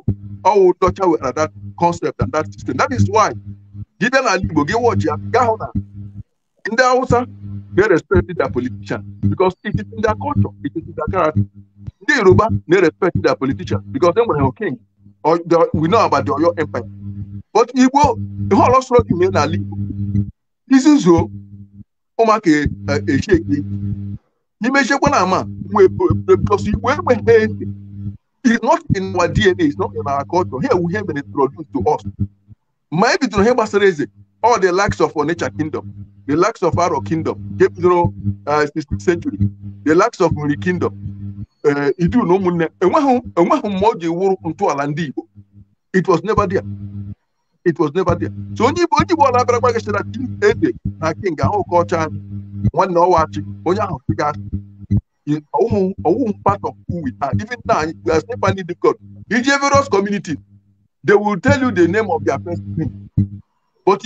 ọwụ dọcha were that concept and that system that is why gị bịa n'ala igbo gị wọchi ya gaa hụ na ndị Hausa they respect their politician because it is in their culture it is their character the Yoruba they respect their politicians because they were king or they, we know about the Oyo Empire. But Igbo, the whole lot of people are This is so. Omake máa kè é ṣèké n'ime ṣekwe na ama because we we he it's not in our DNA it's not in our culture here we have been introduced to us ma ebi tụrụ ihe gbasara eze all the likes of nature kingdom the likes of Aro kingdom nke bidoro 16th century the likes of Nri kingdom Eh, idu na ụmụnne enweghị enweghị mma o ji wụrụ ntọala ndị Igbo it was never there it was never there so onye Igbo onye Igbo ọ na-abịara gbagachara ede na king ahụ ka ọcha nwanne ọwachi onye ahụ gasị ọwụ part of who we are even now we are still finding difficult iji various community they will tell you the name of their first name but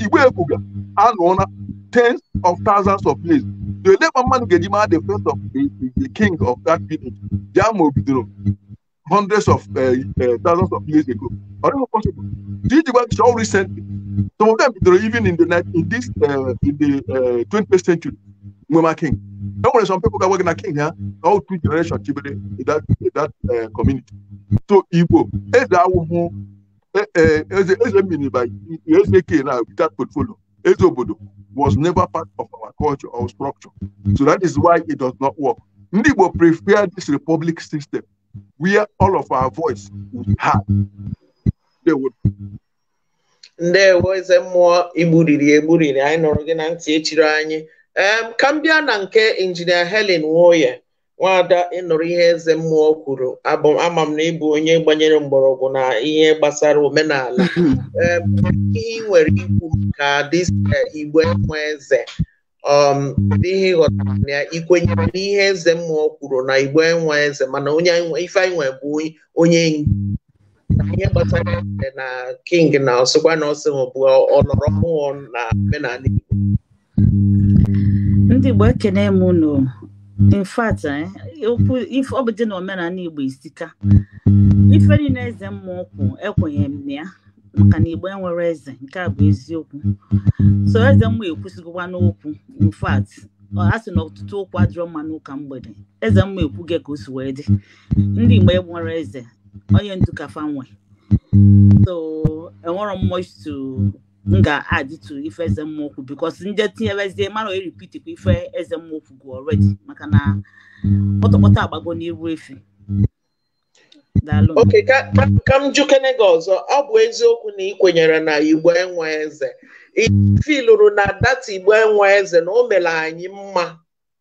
igwe ekwuga anụọla tens of thousands of years the Labour man ga-eji the first of the, the king of that period Jamo bidoro hundreds of uh, uh, thousands of years ago ọ dịghị possible iji gwa show recently some of them bidoro even in the night in this uh, in the uh, 20th century Nwema king e nwere some people ga-agwa gị king ha all two generations chibere in that, in that uh, community so Igbo eze awụhụ Eh, eh, eze eze mini by eze k now with that portfolio eze obodo was never part of our culture or structure so that is why it does not work ndị prefer this republic system where all of our voice will be heard they would ndewo eze mmụọ igburiri egburiri anyị nụrụ gị na ntị echiri anyị ka m bịa na nke injinia Helen Nwoye nwada ịnụrụ ihe eze mmụọ kwuru ama m na ịbụ onye gbanyere mgbọrọgwụ na ihe gbasara omenala (laughs) ihe nwere ikwu maka e, igbo nwe eze um, ihe ịghọtara na ikwenyere n'ihe eze mmụọ kwuru na igbo enwe eze mana onye ife anyị nwe bụ onye ihe gbasara eze na king na ọsịkwa na ọsị bụ ọnọrọ mmụọ na omenala igbo ndị igbo ekene mụ in fact eh, okwu ife ọ bụ dị na omenala igbo isika ife niile eze mmụọ ọkwụ ekwenye m ya maka na igbo enwere eze nke a bụ eziokwu so eze mmụọ ekwusịgokwa n'okwu in fact a sị na ọtụtụ okwu adịrọ mma n'ụka mgbede eze mmụọ ekwu ka o si wee dị ndị igbo enwere eze onye ndu kafa nwe so enwere m m hmm. ga-adịtụ ife eze mmokwu bikos nje tinyerezie mara eripitikwa ife eze mmokwu gụ ọredi hmm. maka na kpọtọkpọtọ agbago n'iru efi oke ka m jukene gị ọzọ ọ bụ eziokwu na ị kwenyere na igbo enwe eze ifilụrụ na data igbo enwe eze na o mere anyị mma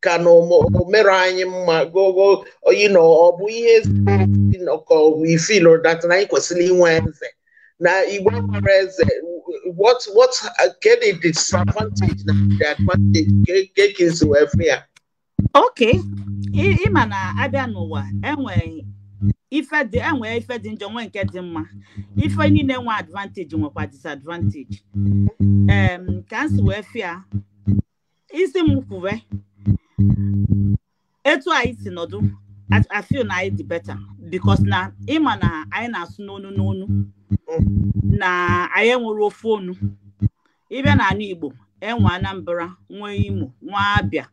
ka na o mere anyị mma gogo oyi na ọ bụ ihe ezi ka ọ bụ ifilụrụ data na anyị kwesịrị inwe eze Now, Igbo whereas eh, what what uh, get the disadvantage na the advantage get kids every year. Ah. Okay, ịma na abịa n'ụwa enwe ife dị enwe ife dị njọ nwee nke dị mma ife niile nwe advantage nwekwa disadvantage um, ka m si wee fịa isi m kwuwe etu anyị si nọdụ Mm. I feel na anyị dị better because na ịma na anyị na-asụ n'onu n'onu mm. na anyị enwere ofe onu ịbịa na anụ Igbo enwe Anambra nwee Imo nwee Abia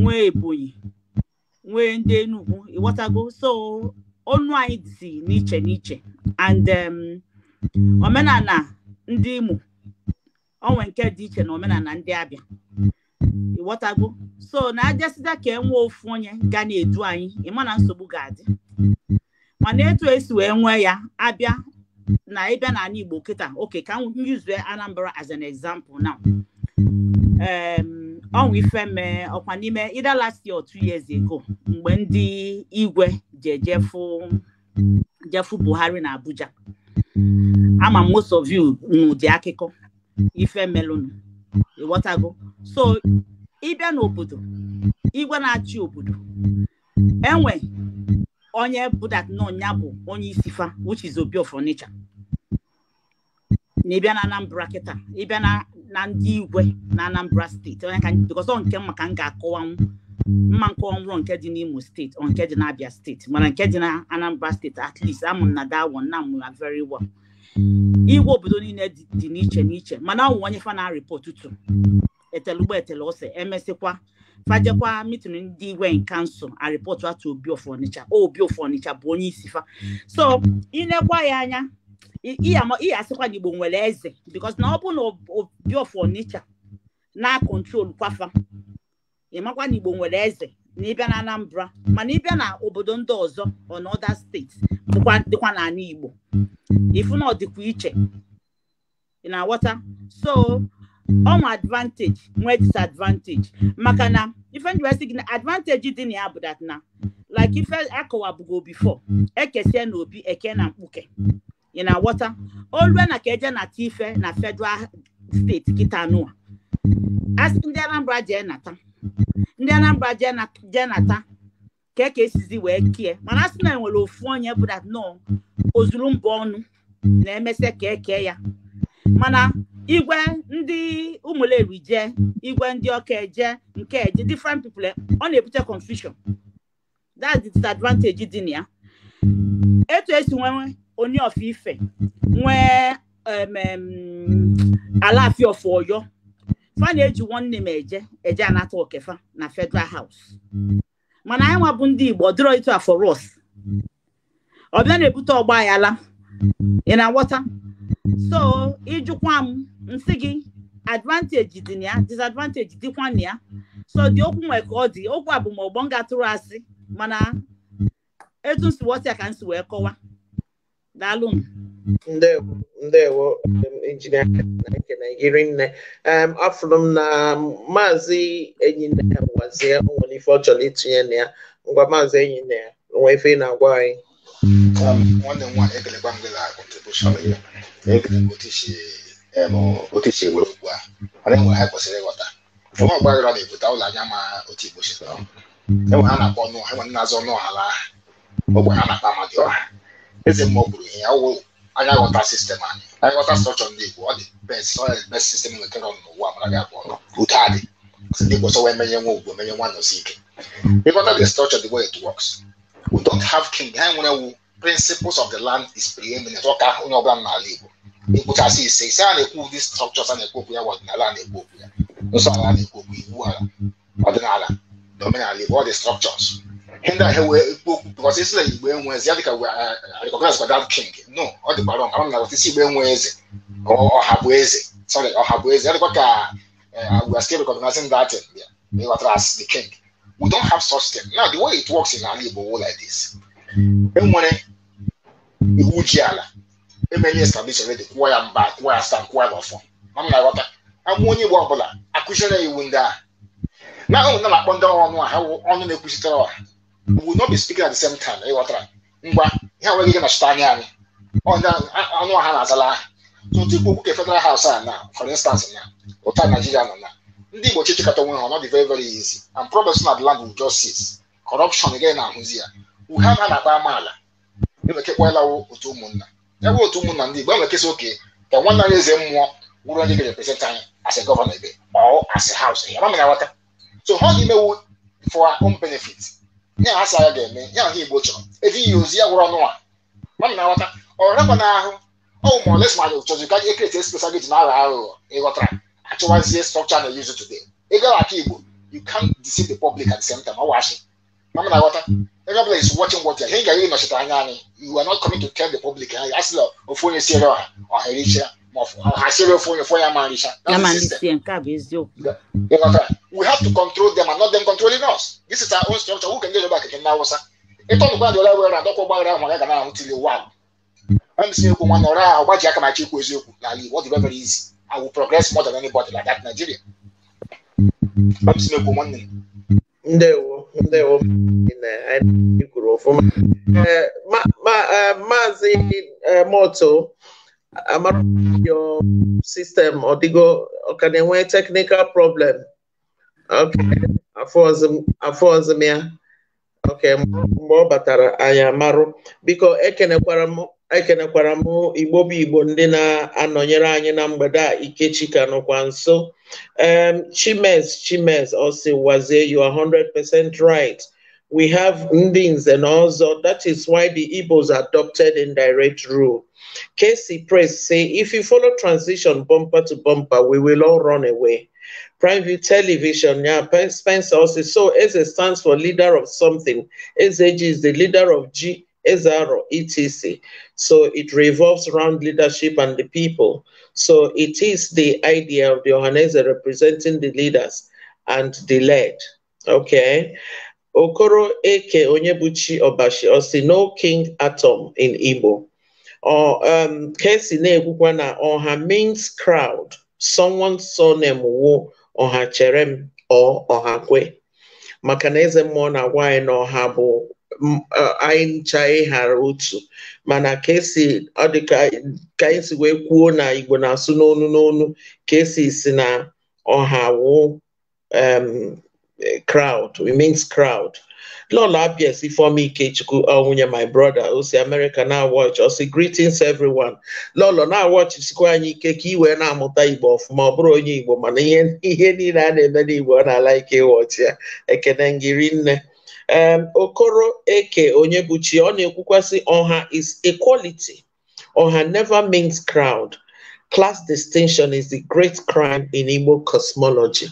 nwee Ebonyi nwee ndị Enugu ịghọtago so onu anyị dị n'iche n'iche and um, omenala ndị Imo onwe nke dị iche na omenala ndị Abia ghọtagbu so na ajasịda ka e nwee ofu onye ga na-edu anyị ịma na nsogbu ga-adị mana etu esi wee nwee ya abịa na ịbịa n'ala Igbo kịta oke ka m yuzue Anambra as an example now ife ifeme ọkwa n'ime either last year two years ago mgbe ndị igwe ji ejefu jefu Buhari na Abuja ama most of you n'ụdị akụkọ ife melụnụ ịghọtago so ịbịa n'obodo igwe na-achị obodo enwe onye budat na bụ onye isi fa which is Obi of Onitsha na ịbịa na Anambra kịta ịbịa na ndị igwe na Anambra steeti onye ka because nke maka m ga-akọwanwu mma nke ọnwụrụ nke dị n'Imo steeti ọ nke dị n'Abia steeti mana nke dị na Anambra steeti at least amụ na dawon na very well igwe obodo niile dị n'iche n'iche mana ọ onye fa na-arịpọtụtụ etelugbo etele ose emesịkwa fajekwa mitụrụ ndị igwe kansụl arịpọtụ atụ obi ofu obi ofu bụ onye isi fa so ịnekwa ya anya ihe asịkwa igbo nwere eze bikos na ọ bụ na obi ofu na kontrol kwafa ịmakwa na igbo nwere eze na ịbịa na anambra mana ịbịa na obodo ndị ọzọ on steeti dịkwa dịkwa n'ala igbo ifu na ọ iche ị na-aghọta so ọnwa advantage nwee disadvantage maka na ife ndị gị na advantage dị na ya bụ na like ife akọwabugo before ekesie na obi eke na mkpuke ị na ghọta olue na ka eje na ife na federal steeti kita nụa asị ndị Anambra jee nata ndị Anambra jee nata ka eke esizi wee kie mana asị na enwere ofu onye bụ dat nọ ozuru mba ọnụ na-emesịa ka eke ya mana igwe ndị ụmụleri je igwe ndị ọka je nke eje different people ọ na-ebute confusion that's the disadvantage dị na ya etu esi nwee onye ọfọ ife nwee alaafia of Ọyọ fa na-eji nwanne m eje eje anata okefa na Federal House mana anyị nwabụ ndị Igbo dịrọ ịtụ afọ ros ọbịa na-ebute ọgba aghara ị na-aghọta so ịjụkwa mm. m nsị gị advantage dị na ya disadvantage dịkwa na ya so dị mm. okwu nwe ka ọ dị okwu bụ ma ọgbọ m atụrụ asị mana etu nsiwọsi ya ka m si wee kọwa daalụ m ndewo ndewo um, injinia nke naijiri nne um, afụrụ m na maazị enyi nne ya gwazie nwere ife ọ chọrọ itinye na ya ngwa maazị enyi nne ya nwee ife ị na-agwa anyị um, nwanne m nwaanyị ekelekwa m gị na contribution ya otu esi okwu a mana enwe ha kwesịrị ịghọta ụfọdụ ọgbaghara na-ebute ụlọ anya ma otu igbo si enwe ha na-akpọ ọnụ ha e nwere na-azọ ọnụ ọhala ogbe ha na-akpa amadị ọha eze mmụọ gburu ihe ọwụ anya ghọta sistem anyị anya ghọta strọchọ ndị igbo ọ dị best ọ dị best sistem nwetara ọnụ n'ụwa mara gị abụọ adị ndị igbo sọwa emenye nwa ike mm. ịghọta nwere wu principles of the land is preeminent ọ ka onye ọbụla n'ala Igbo ekwuchasị ise ise a na-ekwu ụdị structures a na-ekwu okwu ya bụ ọdịnala a na-ekwu okwu ya nsọ ala a na-ekwu okwu iwu ala ọdịnala na omenala Igbo ọ structures ihe ndị ahụ wee ekwu okwu bụkọs isi na Igbo enwezi ya dịka eh, recognize kwa king no ọ dịkwa rọng ama m na wata isi Igbo enwe eze ọha bụ eze sorry ọha bụ eze ya dịkwa ka eh, we are still recognizing that thing eh, there ịghọtara as the king we don't have such thing now the way it works in ala Igbo like this enwere iwu ji ala emenye establish redi kwụọ ya mba kwụọ ya stan kwụọ ya n'ọfọ na m na-aghọta agwụ onye igbo ọbụla akụziere ya iwu ndị a na ahụ na akpọ ndị ọnụ a ha ọnụ na-ekwuzitere ọha we not be speaking at the same ịghọtara ngwa ihe nwere ike nọchite anya anyị ọnụ ọha na-azala aha tụtụ okwu ke federal house a na for instance na ụta naijiria nọ na ndị igbo chịchịkọta onwe ha ọ dị very very easy and problems na the land will just cease corruption again na ahụzi ya uhe ha na-akpa amaala na-emekekwala otu ụmụnna ya bụ otu ụmụnna ndị Igbo enwekesa oke ka nwanne anyị eze mmụọ wụrụ onye ga-represent anyị as a governor ebe or as a house ya mamana aghọta so ha ga-emewu for our own benefit ya ha sa ya ga-eme ya ha Igbo chọrọ eji ya ozi ya gwụrụ ọnụ a mamana aghọta ọ rakwa n'ahụ ọwụ ma oles ma anyị chọzi ka e kreti espesa gị ji na aghọ aghụghọ ịghọtara achọwazie structure na use today ịgaghị aka Igbo you can't deceive the public at the same time ọ washi mamana aghọta everybody is watching what ya ihe ga-enye anya anyị you are not coming to tell the public ẹ yà sílẹ̀ òfòyè sí ẹ̀rọ ọ̀hẹ̀rẹ̀ iṣẹ́ àṣírí òfòyè fún yà máa ń iṣẹ́. yà máa ń iṣẹ́ káàbí ezi o. we have to control them and not them controlling us this is our own structure who can get over kẹ̀kẹ́ náà wọ́sá ètò ọ̀nùkọ́ àdìọ́lá wẹ̀rẹ̀ àdọ́kọ̀ gbàgbé àwọn ọ̀gá gàdá àwọn tilẹ̀ wà. ẹ̀mí sí ekwu nwanne ọ̀rẹ́ àwọn ọgbàjì aka máa chi ekwu eziokwu n'ala Igbo ọ dị very easy I will progress more than anybody like that Nigeria. ẹ̀mí sí ekwu nwanne. ndewo. ndị ụmụnne na anyị kwuru ọfụma eh, eh, maazị eh, moto amara your system ọdịgo ọka na-enwe teknikal prọblem afọ ọzọ m ya ok mgbe ọ batara anya marụ biko ekenekwara m ekenekwara m igbo bụ igbo ndị na-anọnyere anyị na mgbede a ikechi ka nọkwa nso um, chimes chimes osiwazie you are 100% right we have ndins and also that is why the igbos adopted indirect rule casey press say if you follow transition bumper to bumper we will all run away Prime View Television, yeah, Spencer also. So Eze stands for leader of something. SAG is the leader of G SRO, ETC. So it revolves around leadership and the people. So it is the idea of the organizer representing the leaders and the led. Okay. Okoro Eke Onyebuchi Obashi Osi no King Atom in Igbo. Or um Kesi Negukwana or her means crowd, someone's surname wo or her cherem or or her kwe. Maka na eze na anyị ncha ịghara otu mana ka esi ọ dị ka esi wee kwuo na Igbo na-asụ n'onu n'onu ka esi si na ọha wụ crowd it means crowd Lola Apiesi Ifeoma Ikechukwu Onwunye my brother o si America na watch o si greetings everyone lọlọ na watch sikwa anyị ike ka ị wee na-amụta Igbo ọfụma ọ bụrụ onye Igbo mana ihe niile a na-eme n'Igbo ọ na-ala ike ịwọchi ya ekene ngiri nne um, Okoro Eke Onyebuchi ọ na-ekwukwasị ọha is equality ọha never means crowd class distinction is the great crime in Igbo cosmology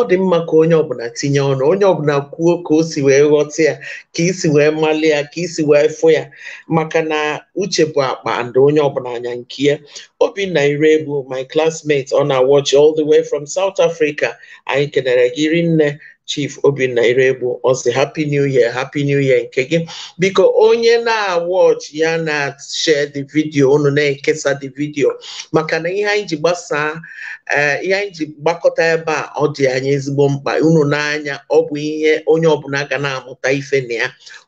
ọ dị mma ka onye ọbụla tinye ọnụ onye ọbụla kwuo ka o si wee ghọta ya ka isi wee malị ya ka isi wee fụ ya maka na uche bụ akpa and onye ọbụla anya nke ya Obinna Irebu my classmate ọ na-awọchi all the way from South Africa anyị kenere gị rinne Chief Obinna Iregbu ọ sị happy new year happy new year nke gị biko onye na-awọch ya na-share the video unu na-ekesa the video maka na ihe anyị ji gbasaa eh, ihe anyị ji gbakọta ebe a ọ dị anya ezigbo mkpa unu n'anya ọ bụ ihe onye ọbụla ga na-amụta ife na ya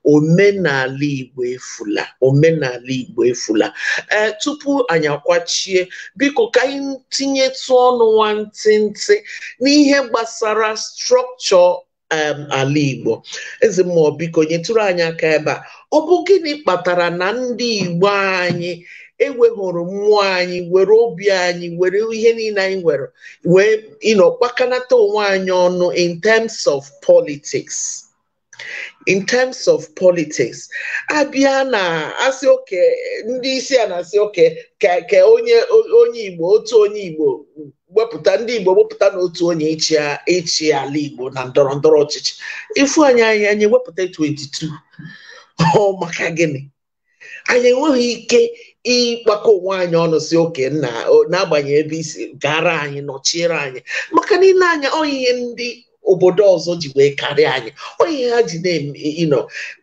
omenala Igbo efula omenala Igbo efula ee eh, tupu anyị akwachie biko ka anyị tinyetụ ọnụ nwantịntị n'ihe gbasara strọkchọ ala Igbo eze mmụọ biko nyetụrụ anyị aka ebe a ọ bụ gịnị kpatara na ndị Igbo anyị ewehụrụ mmụọ anyị were obi anyị were ihe niile anyị nwere wee ịnọ kpakanata onwe anyị ọnụ in terms of politics in terms of politics abịa na asị oke ndị isi a na-asị oke ka onye onye igbo otu onye igbo wepụta ndị igbo wepụta na otu onye ịchị ala igbo na ndọrọ ndọrọ ọchịchị ifu anyị anyị anyị wepụta 22 ọ maka gịnị anyị enweghị ike ịkpakọ onwe anyị ọnụ si oke na n'agbanyeghị ebe isi gara anyị nọchiere anyị maka niile anya ọ ihe ndị obodo ọzọ ji wee karịa anyị onye ha ji na-eme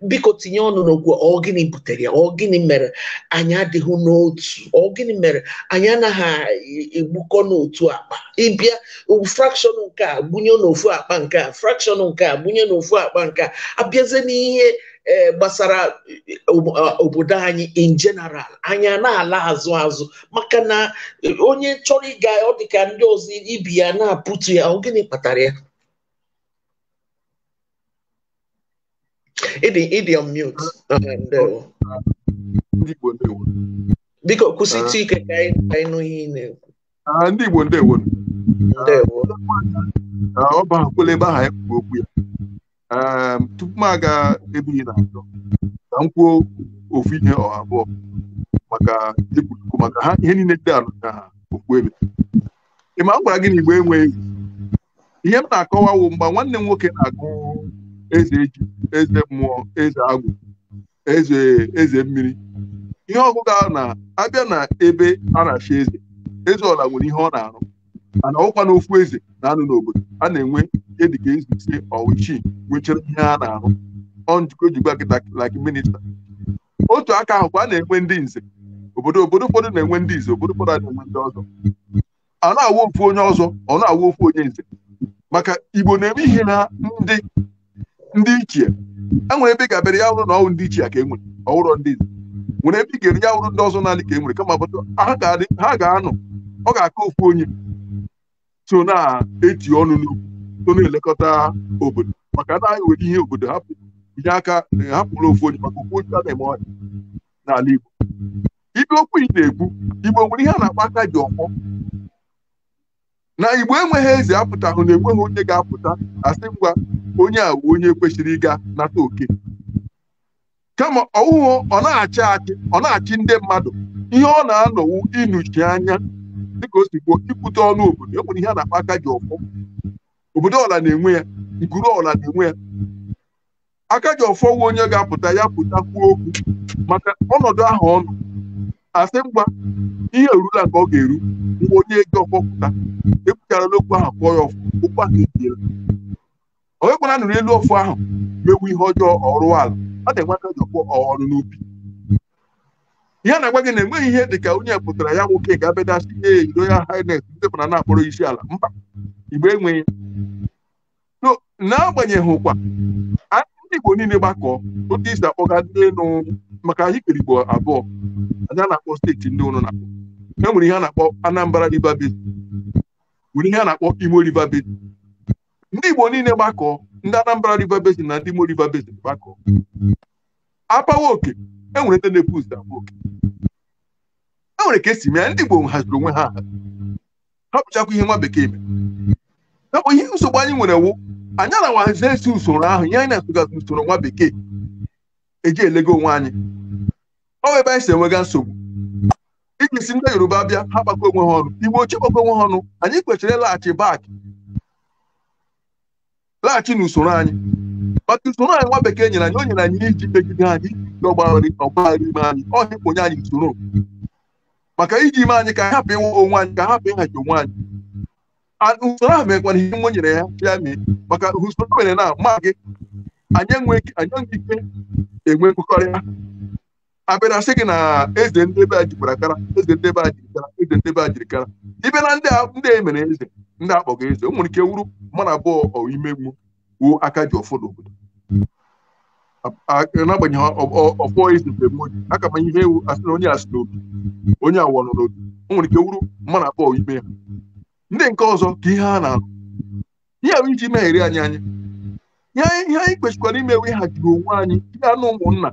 biko tinye ọnụ n'okwu ọ gịnị butere ya ọ gịnị mere anyị adịghị n'otu ọ gịnị mere anyị anaghị egbukọ n'otu akpa ịbịa frakshọn nke a gbunye n'ofu akpa nke a frakshọn nke a gbunye n'ofu akpa nke a abịazie n'ihe e, gbasara e, obodo anyị in general anyị na-ala azụ azụ maka na onye chọrọ ịga ọ dịka ndị ọzọ ibi ya na-apụtu ya ọ gịnị kpatara ya ịdị ịdị on mute biko kwụsịtụ ike ka anyị nụ ihe ị na-ekwu ndị Igbo ndewo ndewo ọ bụ akwụla ebe aha anyị kwuru okwu ya tupu m aga ebe ị na-achọ ka m kwuo ofu ihe ọha abụọ maka ekwuruku maka ha ihe niile dị alụ na ha okwu ebe ị ma m gwara gị na Igbo enweghị ihe m na akọwa wụ mgbe nwanne m nwoke na-agụ eze eju eze mmụọ eze agwụ eze eze mmiri ihe ọgụgụ ahụ na-abịa na ebe a na-achị eze eze ọla nwere ihe ọ na-arụ mana ọkwa na ofu eze na-anụ n'obodo a na-enwe ihe dịka eze ise ọwụchi nwechara ihe a na-arụ ọ njikọ kịta laki minista otu aka ahụ kwa a na-enwe ndị nze obodo obodo ụfọdụ na-enwe ndị nze obodo ụfọdụ a na-enwe ndị ọzọ a na-awụ ofu onye ọzọ ọ na-awụ ofu onye nze maka igbo na-eme ihe na ndị ndị ichie enwere ebe ga ya hụrụ na ọwụ ndị ichie ka e nwere ọhụrụ ndị nwere ebe ị ga-eri ya hụrụ ndị ọzọ n'ala ka e kama kama ha ga-anọ ọ ga-aka ofu onye so na-eti ọnụ n'ugwu so na-elekọta obodo maka na anyị nwere ihe obodo hapụ inye aka hapụrụ ofu onye maka ofu onye a na-eme ọnya n'ala Igbo ibe okwu ị na-ekwu Igbo nwere ihe a na akpa aka ji ọkpọ na igbo enweghị eze apụtahụ na enweghị onye ga-apụta asị ngwa onye a onye kwesịrị ịga nata oke kama ọwụwụ ọ na-achị achị ọ na-achị ndị mmadụ ihe ọ na-anọwu ịnụchi anya dịka o si gbuo ikwute ọnụ obodo e nwere ihe a na-akpa aka ji ọfọ obodo ọla na-enwe ya nkuru ọla na-enwe ya aka ji ọfọ onye ga-apụta ya pụta kwuo okwu maka ọnọdụ ahụ ọnụ asị mgba ihe erula nke ọ ga-eru ngwa onye ego ọkpọpụta ekwuchara n'okwu ahụ kpọọ ya ọfụ okwu ahụ ebiela onye kwara nụrụ elu ofu ahụ mewu ihe ọjọọ ọrụ ala ọ na-enweta jọkpọ ọrụ n'ubi ihe na-agwa gị na enweghị ihe dị ka onye pụtara ya nwoke ga-abedasị ihe iro ya hines ndị pụtara na-akpọrọ isi ala mba igbe enweghị anyị ndị Igbo niile gbakọọ otu isi akpọga ndị elu maka ahịkpere igbo abụọ anyị na-akpọ steeti ndị ụnụ na-akpọ e nwere ihe a na-akpọ Anambra River Basin nwere ihe a na-akpọ Imo River ndị igbo niile gbakọọ ndị Anambra River Basin na ndị Imo River Basin gbakọọ apawa oke e nwere ndị na-epu ụzọ abụọ oke e nwere ka esi mee ndị igbo haziri onwe ha ha pụchakwa ihe nwa bekee mere nakpụ ihe nsogbu anyị nwere wụ anyị na-awahazie esi usoro ahụ ihe anyị na-asụgazi usoro nwa bekee eji elego onwe anyị ọ ebe anyị si enwega nsogbu iji si ndị yoruba bịa ha gbakọ onwe ha ọnụ igbo ochie gbakọ onwe ha ọnụ anyị kwesịrị ịlaghachi bak laghachi n'usoro anyị maka usoro anyị nwa bekee nyere anyị o nyere anyị iji megide anyị ọgbaghara ọgbaghara ime anyị ọhịkponye anyị usoro maka iji ime anyị ka anyị hapụ ịnwe onwe anyị ka hapụ ịhachi onwe anyị usoro ahụ mekwara ihe nwe nyere ya ya mee maka usoro mere na ma gị anyị enweghị ike enwe nkwekọrịta abịa sị gị na eze ndị be a jikwara kara eze ndị be a kara eze ndị be a jirikara ibe na ndị ndị e mere eze ndị akpọga eze o nwere ike wuru mana abụọ ọwa ime wuo aka ji ọfọ n'obodo n'agbanyeghị ọfọ eze mgbe mgbe oji aka manye ihe ewu asị na onye asị n'obi onye awọ nọ n'obi o nwere ike wuru mana abụọ ime ha ndị nke ọzọ ka ihe ha na-arụ ihe ahụ iji meghere anyị anya ihe anyị kwesịkwara imewe haziri onwe anyị ga-anụ ụmụnna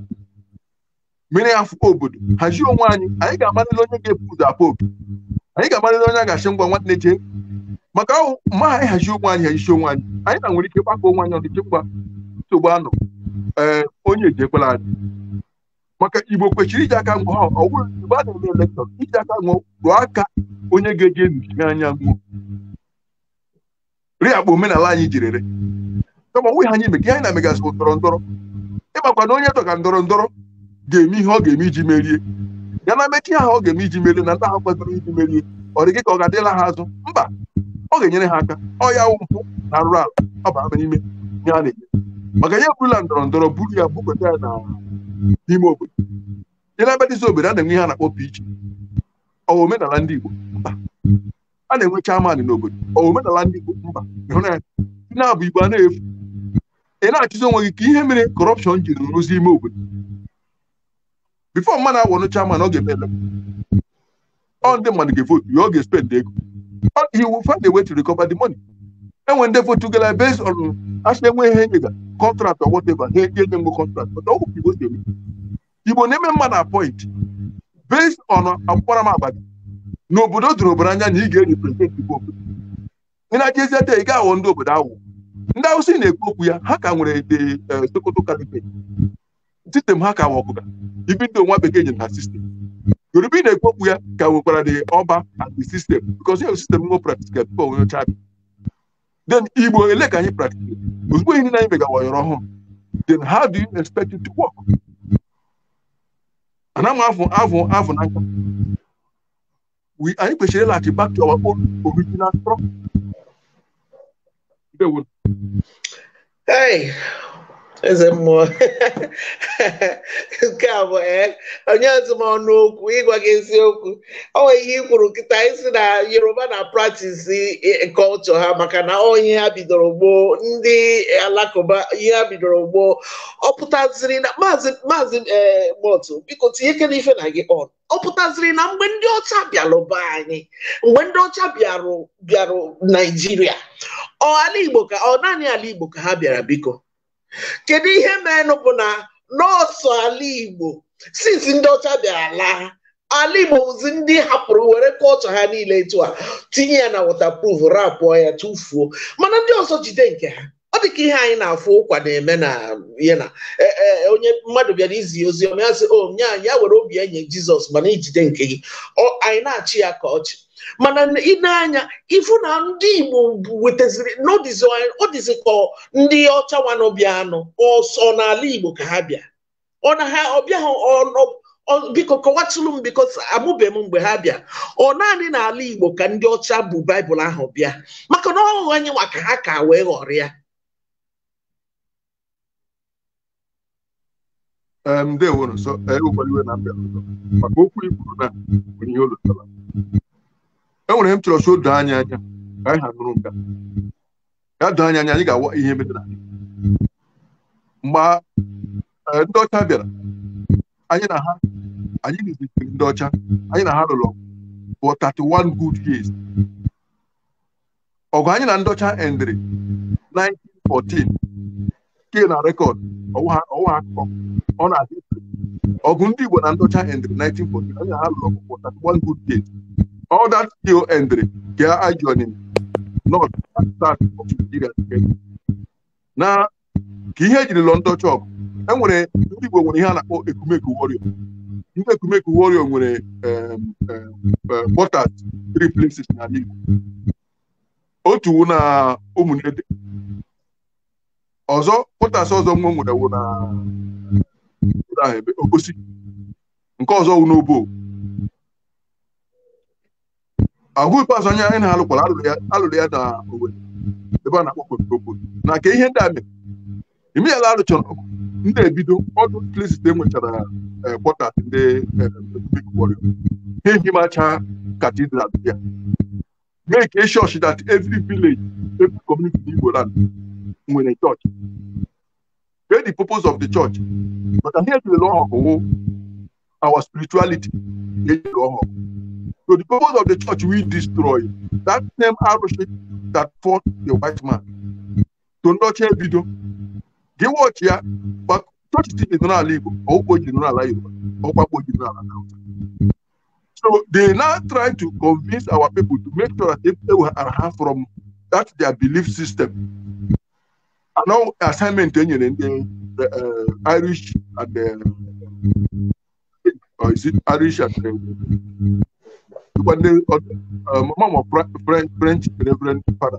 mere ya afọ obodo hazie onwe anyị anyị ga-amalile onye ga-ebu ụzọ afọ obi anyị ga-amalile onye a ga-achị ngwa na-eche. maka ahụ ma anyị hazie onwe anyị hazichi onwe anyị anyị na nwere ike gbakọ onwe anyị ọdịche ngwa nsogbu anọ ee onye ejekwala anyị maka igbo kwechiri iji aka ngwa ọ bụrụ igbo a na-eme iji aka ngwa rụọ aka onye ga-eji anya ngwụ akpa omenala anyị jirere kama onwe ha anyị meke anyị na-emegasị ndọrọ ndọrọ ịmakwa na onye tọ ndọrọ ndọrọ ga-eme ihe ọ ga-eme iji merie ya na mmechi ha ọ ga-eme iji merie na ndị ha kwesịrị iji merie ọ dị gị ka ọ ga-adịla ha azụ mba ọ ga-enyere ha aka ọ ya mpụ na arụ ala ọ ama n'ime ihe a na-eme maka ya eburula ndọrọ ndọrọ buru ya bukweta ya n'ime obodo dị na bedịzi obodo a na-enwe ihe a na-akpọ pich ọwa omenala ndị Igbo mba a na-enwe n'obodo omenala ndị Igbo mba ịhụ na ya na-abụ Igbo a na-efu ị na-achụzi onwe gị ka ihe mere kọrọpshọn jiri rụzi ime obodo bifo mmadụ awọnụ chairman ọ ga-eme ọ ndị mmadụ ga-evotu ya ọ ga-espend ego he will find a way to recover money enwe ndị votu gara on asị enwe ihe nyega contract or whatever ha enye ndị contract ọ bụ igbo na-eme mmadụ appoint based on akparamagba gị n'obodo doro obere anya na ị ga-erepresent igbo obodo ị na-achezi ata ị ga-aghọ ndị obodo awụ ndị awụsa na-ekwu okwu ya ha ka nwere the eh, Sokoto caliphate sistem ha ka nwe ọkụka ibido nwa bekee nyere ha sistem Yoruba na-ekwu okwu ya ka nwekwara dị ọba and the system because ya sistem ngo ka people onye ọcha then Igbo ele ka anyị practical ozugbo ihe niile anyị megawa yọrọ ọhụrụ then how do you expect it to work ana m afụ afụ afụ n'aka anyị kwesịrị ịlaghachi back to our own original structure Hey, eze mmụọ (laughs) nke a bụ ee onye ọzọ m ọnụ okwu ịgwa gị eziokwu ọ nwere ihe ikwuru kwuru nkịta isi na yoruba na praktis culture ha maka na ihe ha bidoro gboo ndị alakụba ihe ha bidoro gboo ọ pụtaziri na maazị e, motu biko tinye ife na gị ọnụ ọ pụtaziri na mgbe ndị ọcha bịara anyị mgbe ndị ọcha bịarụ bịarụ naijiria ọ ala igbo ka ọ naanị ala igbo ka ha bịara biko kedu ihe menụ bụ na nọọsụ ala igbo since ndị ọcha bịara laa ala igbo bụzi ndị hapụrụ were kọlchọ ha niile etu a tinye ya na waterproof rapụọ ya tụfuo mana ndị ọzọ jide nke ha ọ dị ka ihe anyị na-afụ ụkwa na-eme na ihe na e, e, onye mmadụ bịara izi ozi ọma ya sị o oh, nye ya were obi enye jizọs mana ijide nke gị anyị na-achị ya ka ọchị mana ị na-anya ifu na ndị Igbo wetaziri ọ dịzị ka ndị ọcha wanọbịa anọ ọsọ n'ala Igbo ka ha bịa ọ na ha ọbịa ha biko kọwatụlụ m biko amụbe m mgbe ha bịa ọ naanị n'ala Igbo ka ndị ọcha bụ baịbụl ahụ bịa maka na ọghụghọ anyị ka ha ka wee ghọrọ ya ọzọ maka okwu i kwuru na ihe olutara enwere ihe m chọrọ si doo anyị anya ka anyị ha nụrụ ya doo anya anya anyị ga-awa ihe metara mgbe eh, ndị ọcha bịara anyị na ha anyị na-ezitere ndị ọcha anyị na ha rụrụ for 31 good years ọgụ anyị na ndị ọcha endịrị 1914 ke na rekọd ọwụwa akụkọ ọ na-adị ọgụ ndị Igbo na ndị ọcha endịrị 1914 anyị na ha rụrụ ọgụ for 31 good years All that still entry ka ajọni not start of Nigeria na ka ihe ejiri lọ ndọcha ọgụ enwere ndị Igbo nwere ihe a ekumeku warrior ndị ekumeku warrior nwere quarters three places n'ala Igbo otu na ụmụnede ọzọ quarters ọzọ nwa wụ na nke ọzọ wụ agụ ikpeazụ anya anyị na-alụkwara alụrụ ya na Owerri ebe a na-akpọ Okpoko na ka ihe ndị a mere imeyala arụchara ndị ebido ọdụ Clisite nwechara kwọta e, ndị Republic Warrior ha ehimacha katidral ya mee ka e chọọchị dat evri village evri community in Igbo nwere chọọchị Where the purpose of the church maka ihe ejirela ọhụ our spirituality ejiri ọhụ So the purpose of the church we destroy. That same arrowhead that fought the white man. To nurture Bido. Gị watch ya, but church is in general Igbo, or not general Yoruba, or Ukpo general So they now try to convince our people to make sure that they are from that their belief system. And now assignment in the, the uh, Irish and the or uh, is it Irish and the dịkwa ndị mama ma french reverend fada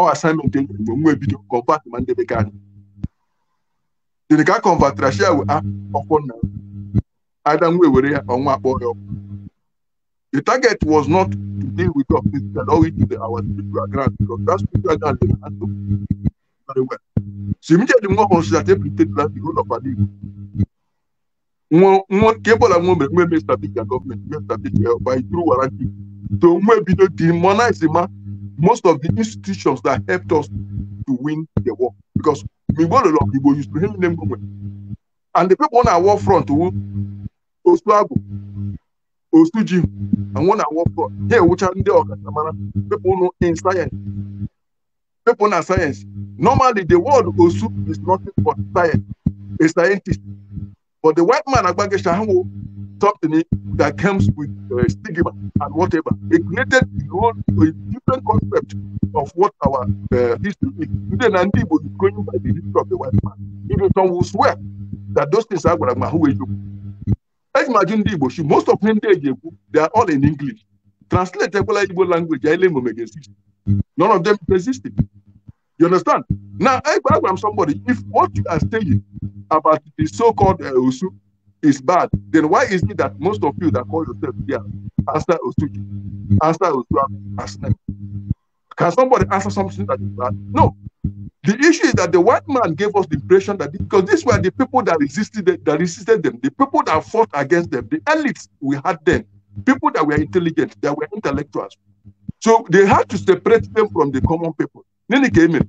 ọ assignment enyere mgbe nwa ebido kọmpat ma ndị bekee anyị dịrị ka a kọmvatara shia we ọkwọ nna ada nwa ewere ya ọnwa ya the target was not to deal with us physical or to the our spiritual ground because that spiritual ground dey handle very well so immediately nwa ọhụrụ that every state the whole of our igbo kebola nwe mere nwe mestabik ya gọọmenti mestabik ya by through warranty so nwe bido demonize ma most of the institutions that helped us to win the war because migbolo lọ igbo used to him name gome and the people on our war front who oh, osu agbo osu ji and one our war front ha ewucha ndị ọkachamara people no in science people na science normally the word osu is nothing but science a scientist But the white man, Agbageshahamu, something that comes with uh, stigma and whatever. It created a whole a different concept of what our uh, history is. Today, Nandi was going by the history of the white man. Even some will swear that those things are going to Imagine the Igbo, most of them, they are all in English. Translate Igbo language, None of them existed. You understand? Now, I am somebody, if what you are saying about the so-called uh, is bad, then why is it that most of you that call yourself here answer Usu, answer Usu as Can somebody answer something that is bad? No. The issue is that the white man gave us the impression that because these were the people that resisted that resisted them, the people that fought against them, the elites we had then, people that were intelligent, that were intellectuals. So they had to separate them from the common people. ne ne game no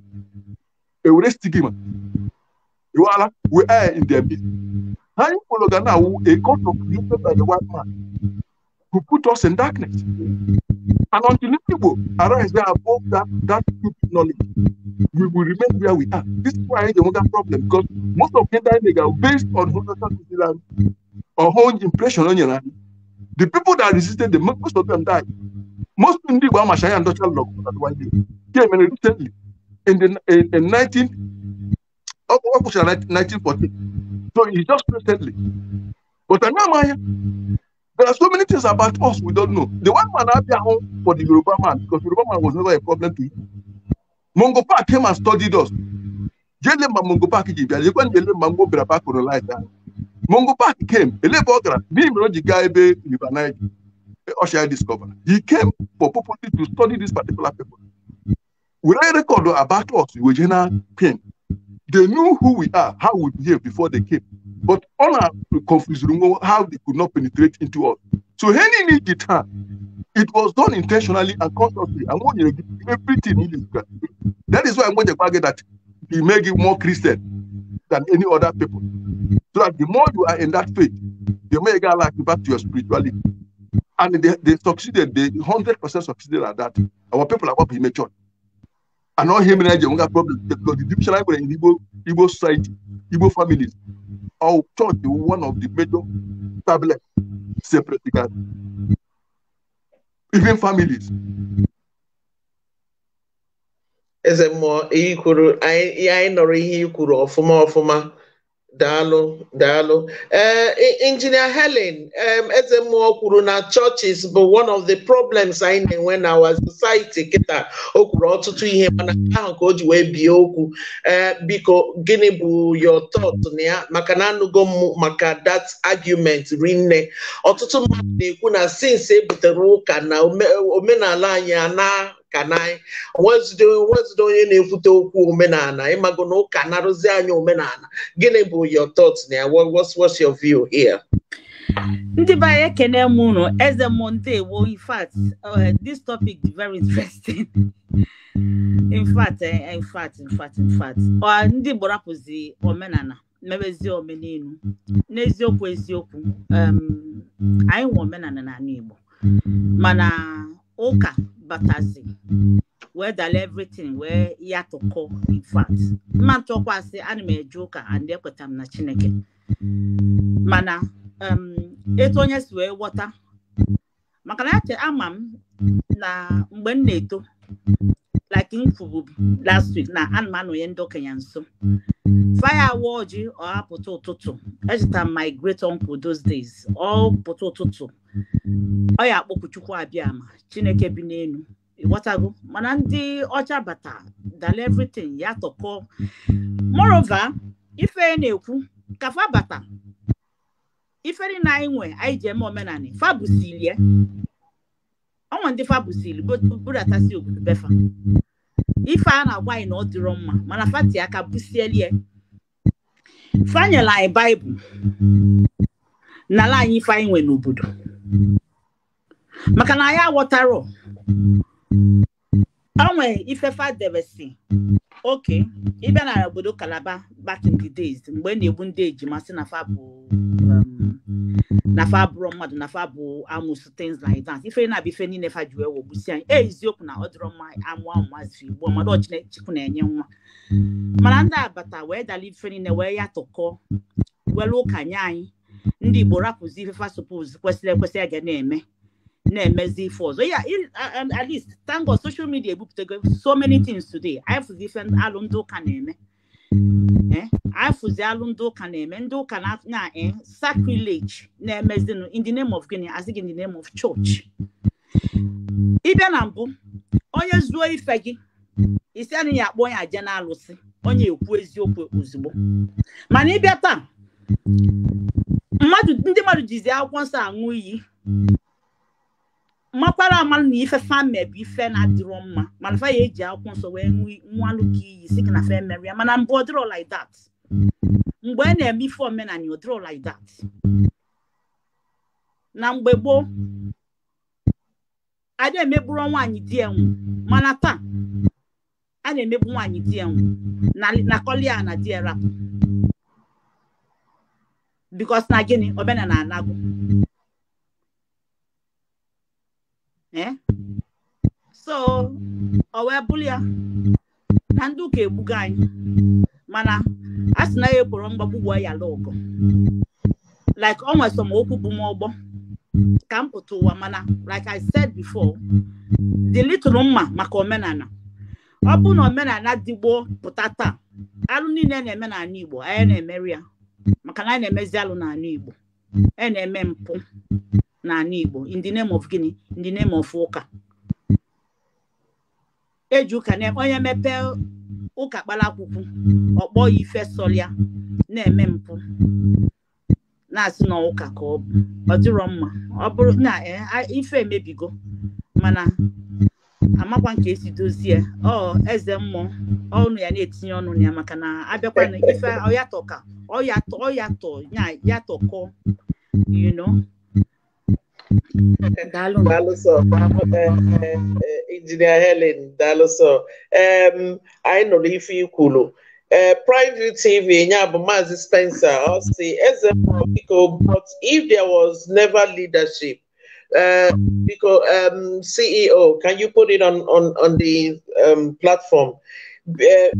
ewure stigma ewu ala we air in their midst how you follow Ghana who a God of created by the white man who put us in darkness and until the people arise they have that that stupid knowledge we will remain where we are this is why the hunger problem because most of Kenyan nigga based on horizontal Islam or whole impression on your the people that resisted the most of them died most ndị Igbo amachara ya ndọcha lọgụ one day Yeah, man, i In the in, in 19, oh, what was 1914? So it's just recently. But I Anamaya, there are so many things about us we don't know. The one man out home for the Yoruba man, because Yoruba man was never a problem to him. Mongo Park came and studied us. Jelemba Mongo Park you can Jelemba Mongo Brabak on like that. Mongo Park came, Elebogra, Nim Rojigabe, Libanai, Osha discovered. He came for purpose to study this particular people were record about us, we Eugenia They knew who we are, how we behave before they came. But all our confusion, how they could not penetrate into us. So any need the time. It was done intentionally and consciously. And when you everything that is why I'm going to argue that we make you more Christian than any other people. So that the more you are in that faith, the more you get like back to your spirituality. And they, they succeeded, they 100% succeeded at that. Our people are what we matured. and not him and Ejim. problem. Because the division like in Igbo, Igbo society, Igbo families, our church is one of the major tablet separate even families. Eze mmụọ ihe kwuru anyị anyị nọrọ ihe i kwuru ọfụma ọfụma daalụ daalụ eh, e, ee injinia helen eze mmụọ kwuru na churches bụ one of the problems anyị na-enwe na our society kịta o kwuru ọtụtụ ihe mana ahụ ka o ji wee bie okwu ee eh, biko gịnị bụ your thought na ya maka na anụgo m maka that argument rinne ọtụtụ mmadụ na-ekwu na since e butere ụka na omenala anyị a na kanai onwezide onye na-ekwute okwu omenala ịmago na ụka narụzi anyị omenala gịnị bụ your thoughts na ya what's what's your view here ndị be anyị ekene m eze m ndewo in fact uh, this topic is very interesting (laughs) eh, in fact in fact in ndị omenala mebezi n'eziokwu eziokwu um, anyị nwe omenala n'ala Igbo mana ụka batazi wee dala everything wee ya tụkọ in mma mma ntụkwasị ana m eje ụka and ekweta m na chineke mana etu onye si wee ghọta maka na ache ama m na mgbe m na-eto like m last week na ana m ndị okenye nso faya awa ọjị ọhapụta ụtụtụ echeta my great uncle those days ọ oh, pụta ụtụtụ Mm. ọ ya akpọkụ abịa ma chineke mm. bi n'elu ịghọtago mana ndị ọcha bata dal everything ya tọkọ morova ife na-ekwu ka fa bata iferi na anyị nwe anyị ji eme omenani fa ọnwa ndị fa busili budatasi obodo befa ife a na-agwa anyị na ọ dịrọ mma mana fati aka busielie fanyela anyị baịbụl nala anyị ife anyị nwe n'obodo maka na ya aghọtara onwe ifefa debesi oke ịbịa na obodo kalaba back in the days mgbe e na-egbu ndị ejima sị na fa bụ um, nafa abụrụ mmadụ nafa bụ amụsụ things like that ife na abụ ife niile fa ji wee wogbusi anyị e, eziokwu na ọ dịrọ mma amụ ahụ igbo mmadụ na-enye nwa mana ndị abata wee dala ife niile wee ya tụkọ welu ụka nye anyị ndị mm-hmm. Igbo rapụzi ife supos kwesịrị ekwesị a ga na-eme na-emezi ife ọzọ ya uh, um, at least thank God social ebupụtago so many things today ifụzi ife alụmdị ụka na-eme afụzi mm-hmm. eh, alụmdị ụka na-eme ndị ụka na eh, sacrilege na-emezinụ in the name of gịnị asị gị in the name of church ịbịa na mbụ onye zuo ife gị isi anaghị akpọ onye aje na alụsị onye ekwu eziokwu ozugbo mana ịbịa taa mmadụ ndị mmadụ jizi akwụkwọ nsọ aṅụ iyi makwara amalụ na ife fame bụ ife na-adịrọ mma mana fa ya eji akwụkwọ nsọ wee nwa ka iyi si na fe ya mana mbụ ọ like that mgbe a e na-eme ife omenala ọ dịrọ like that na mgbe gboo na emegburu nwaanyị di enwu mana taa a na-emegbu nwaanyị di enwu na kọlia na di erapụ bikos na gịnị omenaala na anagụ eh? so ọ wee bụrụ ya na ndị ụka egbugo anyị mana a sị na ya ekworo mgbagbu gwuo ya lụgụ like ọ nwere okwu bụ m ọgbọ ka m pụta ụwa mana like i said before dị little mma maka omenala ọ bụ na omenala dịgbo pụta taa alụ niile na-eme Igbo anyị na-emeri ya maka na anyị na-emezi alụ n'ala Igbo e na-eme mpụ n'ala Igbo in the name of gịnị in the of ụka eji ụka na onye mepee ụka kpara akwụkwọ ọkpọ ya ife sọlịa na-eme mpụ na-asị na ụka ka ọ bụ ọ dịrọ mma ọ bụrụ na e, ife emebigo mana amakwa nke esi dozie ọ eze mmụọ ọnụ ya na-etinye ọnụ ya maka na abịakwa na ife ọyatọ ka ọyatọ ọyatọ ya yatọkọ you know eh, daalụ eh, eh, injinia Helen daalụ sọ anyị nọ n'ife ikwulu Uh, Pride TV, Spencer, I'll say, as a but if there was never leadership, Uh, because mm. um, CEO, can you put it on on on the um, platform? Uh,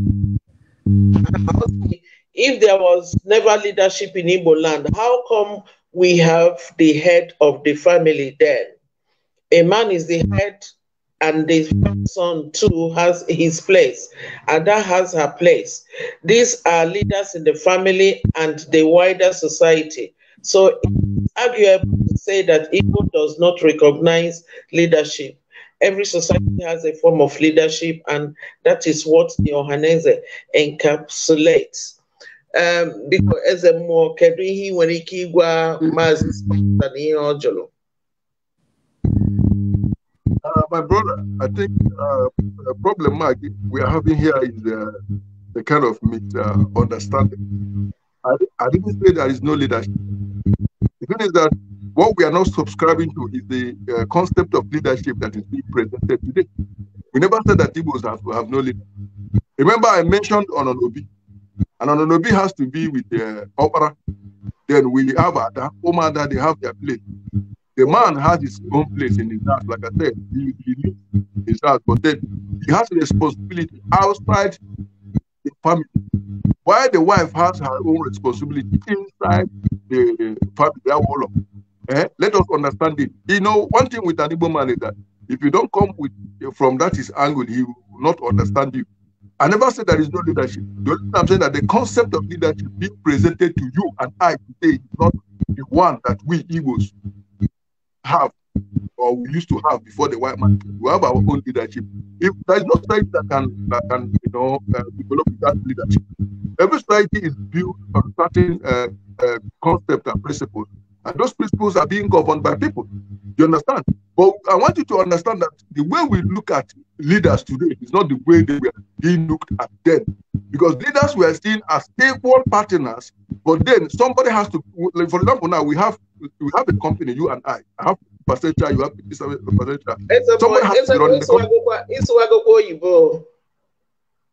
if there was never leadership in Igbo land, how come we have the head of the family then? A man is the head, and the son too has his place, and that has her place. These are leaders in the family and the wider society. So argue to say that ego does not recognize leadership. Every society has a form of leadership, and that is what the Ohaneze encapsulates. Um, because as a more kedu when he ike ịgwa maazị spọta Ojolo. Uh, my brother, I think uh, the problem we are having here is uh, the kind of misunderstanding. Uh, I, I didn't say there is no leadership. The thing is that what we are not subscribing to is the uh, concept of leadership that is being presented today. We never said that Igbos have, have no leader. Remember, I mentioned Ononobi. And Ononobi has to be with the opera. Then we have Ada, Omada, they have their place. The man has his own place in his house, like I said, he, he lives his house, but then he has a responsibility outside the family, while the wife has her own responsibility inside the family. Wall eh? Let us understand it. You know, one thing with an Igbo man is that if you don't come with from that his angle, he will not understand you. I never said there is no leadership. The only I'm saying that the concept of leadership being presented to you and I today is not the one that we Igbos have or we used to have before the white man. We have our own leadership. If there is no society that can that can you know uh, develop that leadership, every society is built on certain uh, uh, concepts and principles, and those principles are being governed by people. You understand? But I want you to understand that the way we look at leaders today is not the way they were being looked at then, because leaders were seen as equal partners. But then somebody has to, for example, now we have we have a company, you and I. I have percentage, you have 57 percentage. It's Someone boy, has it's to run it's the it's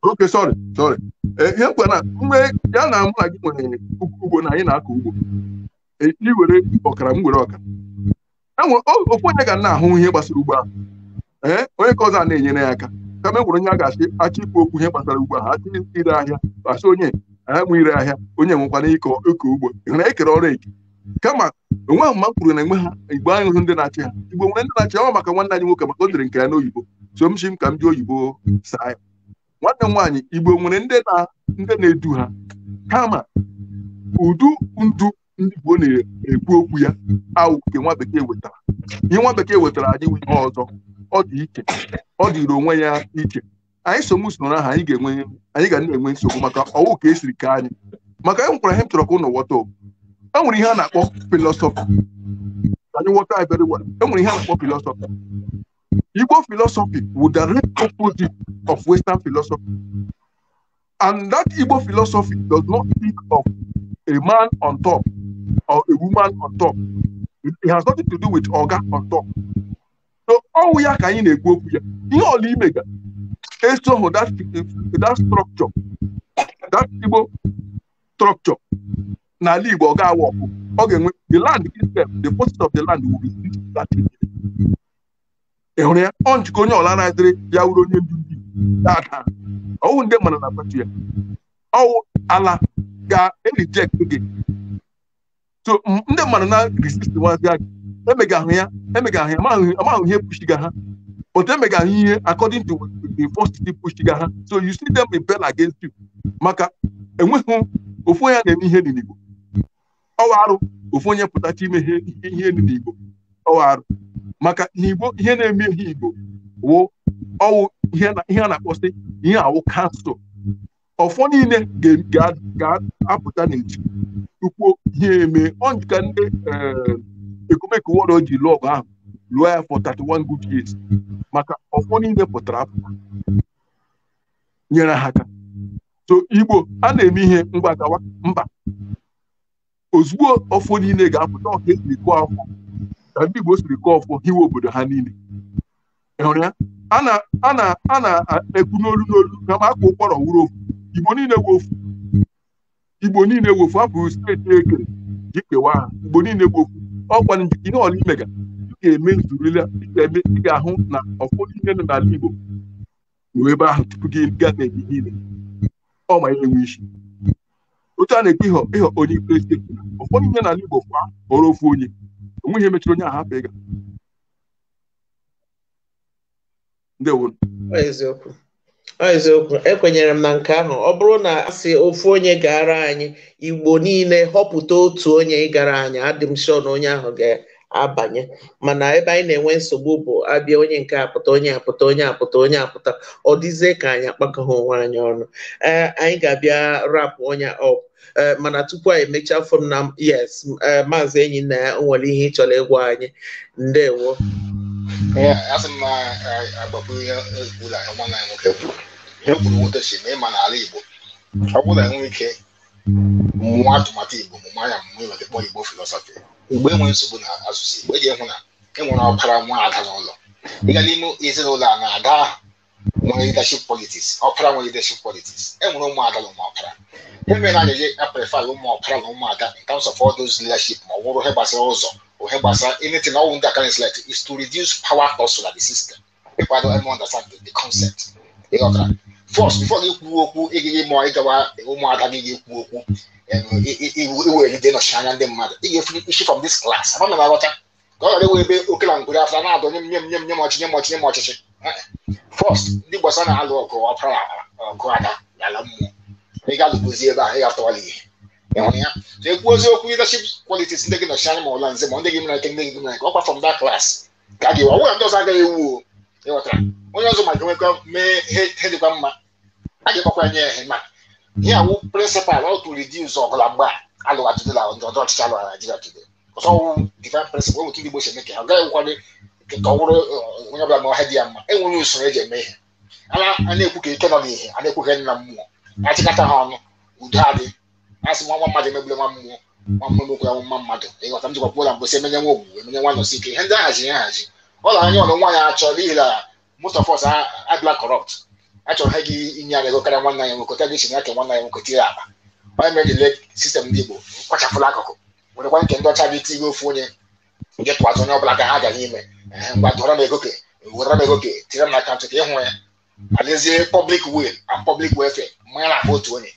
Okay, sorry, sorry. Eh, ihe mkpa na mgbe ya na mụ na gị nwere ugbo na anyị na-akọ ugbo ị e, were ọkara m were ọkara e okwu onye ga na-ahụ ihe gbasara ugbo ahụ ee eh, onye ka ọzọ a na-enyere ya aka kama e nwere onye a ga-achị achị ikwu okwu ihe gbasara ugbo ahụ achị ire ahịa achị onye a eh, ire ahịa onye nwekwana ịkọ ugbo ị ekere ọrụ eke kama onwe ahụ kwuru na enwe ha igbo ahụhụ ndị na-achị ha igbo nwere ndị na-achị ọ maka nwanne anyị nwoke maka o dere nke ya n'oyibo so m ka m ji oyibo saa ya nwanne m nwaanyị igbo nwere ndị na-edu ha kama udu ndu ndị igbo na-ekwu okwu ya awụ nke nwa bekee wetara ihe nwa bekee wetara anyị nwe ihe ọzọ ọ dị iche ọ dịịrị onwe ya iche anyị so m usoro anyị ga-enwe anyị ga na-enwe nsogbu maka ọwụ ka esiri ka anyị maka e nwekwara ihe m chọrọ ka ụnụ ghọta obu enwere ihe a na-akpọ filosofi anyị ghọta very well enwere ihe a na-akpọ filosofi Igbo philosophy would direct opposite of Western philosophy. And that Igbo philosophy does not think of a man on top or a woman on top. It, has nothing to do with Oga on top. So all we are can in a group here. You all mega. So that that structure, that Igbo structure n'ala Igbo ọ ga-awa ọkụ ọ ga-enwe the land itself the post of the land will be ị hụrụ ya ọ njikọ onye ọla na-adịrị ya wuru onye ndu ndị dada ọwụ ndị mana na pati ya ọwụ ala ga-erijekt gị so ndị mmadụ na resist nwazi gị emegahụ ya emegahụ ya amahụ ihe pushiga ha but emegahụ ihe according to the first pushiga ha so you see them rebel against you maka enweghị ofu onye na-eme ihe n'Igbo ọwa arụ ofu onye pụtacha ime ihe elu n'igbo ọwa arụ maka na igbo ihe na-eme ihe igbo wụ ọwụ ihe a na-akpọsị ihe awụ kansụl ọfọ niile ga-apụta n'iji tupu ihe eme ọnjika ndị eh, ekumeke wọrọ ji lụọ ọgụ ahụ lụọ ya fọ 31 good years maka ọfọ niile pụtara apụta nyere ha aka so igbo a na-eme ihe mgbagawa mba ozugbo ọfọ niile ga-apụta ọka esiri kụọ afọ ka ndị Igbo siri kụọ ọfọ hiwe obodo ha niile ịhụrụ ya a na-ekwu n'olu n'olu na ma aka ụkpọrọ wuru ofu Igbo niile wofu Igbo niile wofu abụghị steeti ekere ji kewa ha Igbo niile wofu ọkwa njikọ ihe ọla imega ị ga-eme nzurila ị ga-eme ị ga-ahụ na ọfọ niile nọ n'ala Igbo nwee ebe ahụ tupu gị gaa n'ebe niile ọ ma enwe isi otu a na-ekwe ịghọ ịghọ onye ikpere ụfọdụ ihe n'ala Igbo kwa ọrụ ofu onye onweghị emechiri onye ahapụ ịga eziokwu eziokwu ekwenyere m na nke ahụ ọ bụrụ na asị ofu onye gara anyị Igbo niile họpụta otu onye ịgara anyị adị m na onye ahụ ga-abanye mana ebe anyị na-enwe nsogbu bụ abịa onye nke apụta onye apụta onye apụta onye apụta ọ dịzie ka anyị akpakọghị onwe anyị ọnụ ee anyị ga-abịa rapụ onye ọpụ Eh, mana tupu anyị emechaa fom na yes eh, maazị enyi na ya nwere ihe ịchọrọ ịgwa anyị ndewo asị m eh, agbakwuru e nwoke kwuru kwuru na ịma igbo ọ ike atụmatụ igbo mụma ya mmụọ igbo mgbe e nwere nsogbu na asụsụ igbo eji hụ na enwere ọkara nwa n'ụlọ ịga n'ime ezinụlọ a na-ada wọn leadership politics opera. wọn leadership politics ẹnwere e ụmụ ada na ụmụ ọpara eme na anyịje aprefa na ụmụ ọpara na ụmụ ada in terms of all those leadership ma ọ bụrụ ihe gbasara ụzọ ihe gbasara anything ọwụ ndị aka select is to reduce power hustle at the system people don't even understand the, the concept ịghọtara first before gị kwuo okwu ịgaghị ma ịgawa ụmụada gị ga-ekwu okwu iweride nọchi anya ndị mmadụ ị ga-efu isi from this class ama na m aghọta ka ọ ghara ewe ebe oke na ngwere afọ na-adọ nye m nye m nye m ọchị nye m ọchị nye m ọchịchị fọst ndị gbasa na-alụ ọgụ ọkụ ọgụ ada n'ala mmụọ ị ga ebe a ị ga-atọwala ihe ya na ekwu oziokwu leadership qualities ndị gị nọchi anya ma ọla nze ma ndị gị mara nke ndị gị mara ike ọkwa from that class ka a ga-ewe ndị ọzọ agaghị ewu o ịghọtara onye ọzọ ma ga mee ihe dịkwa mma a ga nye ma ihe awụ prịnsịpal ọ tụrụ di ụzọ ọgụla mgbe a alụghatụdịla ndị ọchịchị alụgha Naijiria ọzọ ọwụ prịnsịpal ndị Igbo si eme ka ka bụrụ onye ọbụla ma ọha dị ya mma enwere usoro eji eme ihe a na-ekwu ka ike nọ n'ihe a na-ekwu ka nna mmụọ achịkọta ha ọnụ udo adị asị nwa mmadụ emegbule nwa mmụọ nwa mmụọ emekwu ya nwa mmadụ ịghọta m jikwapụ ụlọ mgbesi emenye nwa ogbu emenye nwa nọsi ike ihe ndị ahazi ya ahazi ọla anya ọlụ nwaanyị achọ n'ihi na most of us adịla corrupt achọrọ ha gị inye aga ego karịa nwanne ya nwoke ta gị ya ka nwanne ya nwoke tinye akpa onye mere jile sistem ndị Igbo kpachapụla akụkụ werekwa nke ndị ọcha gị tinye ofu onye gị tụwatụ onye ọbụla ka ha gara ime gwara m ego ka wetara m ego ka tinyere m n'akaụntụ ka ịhụ ya adezie pọblik wil na pọblik welfare mmanya na-abụ otu onye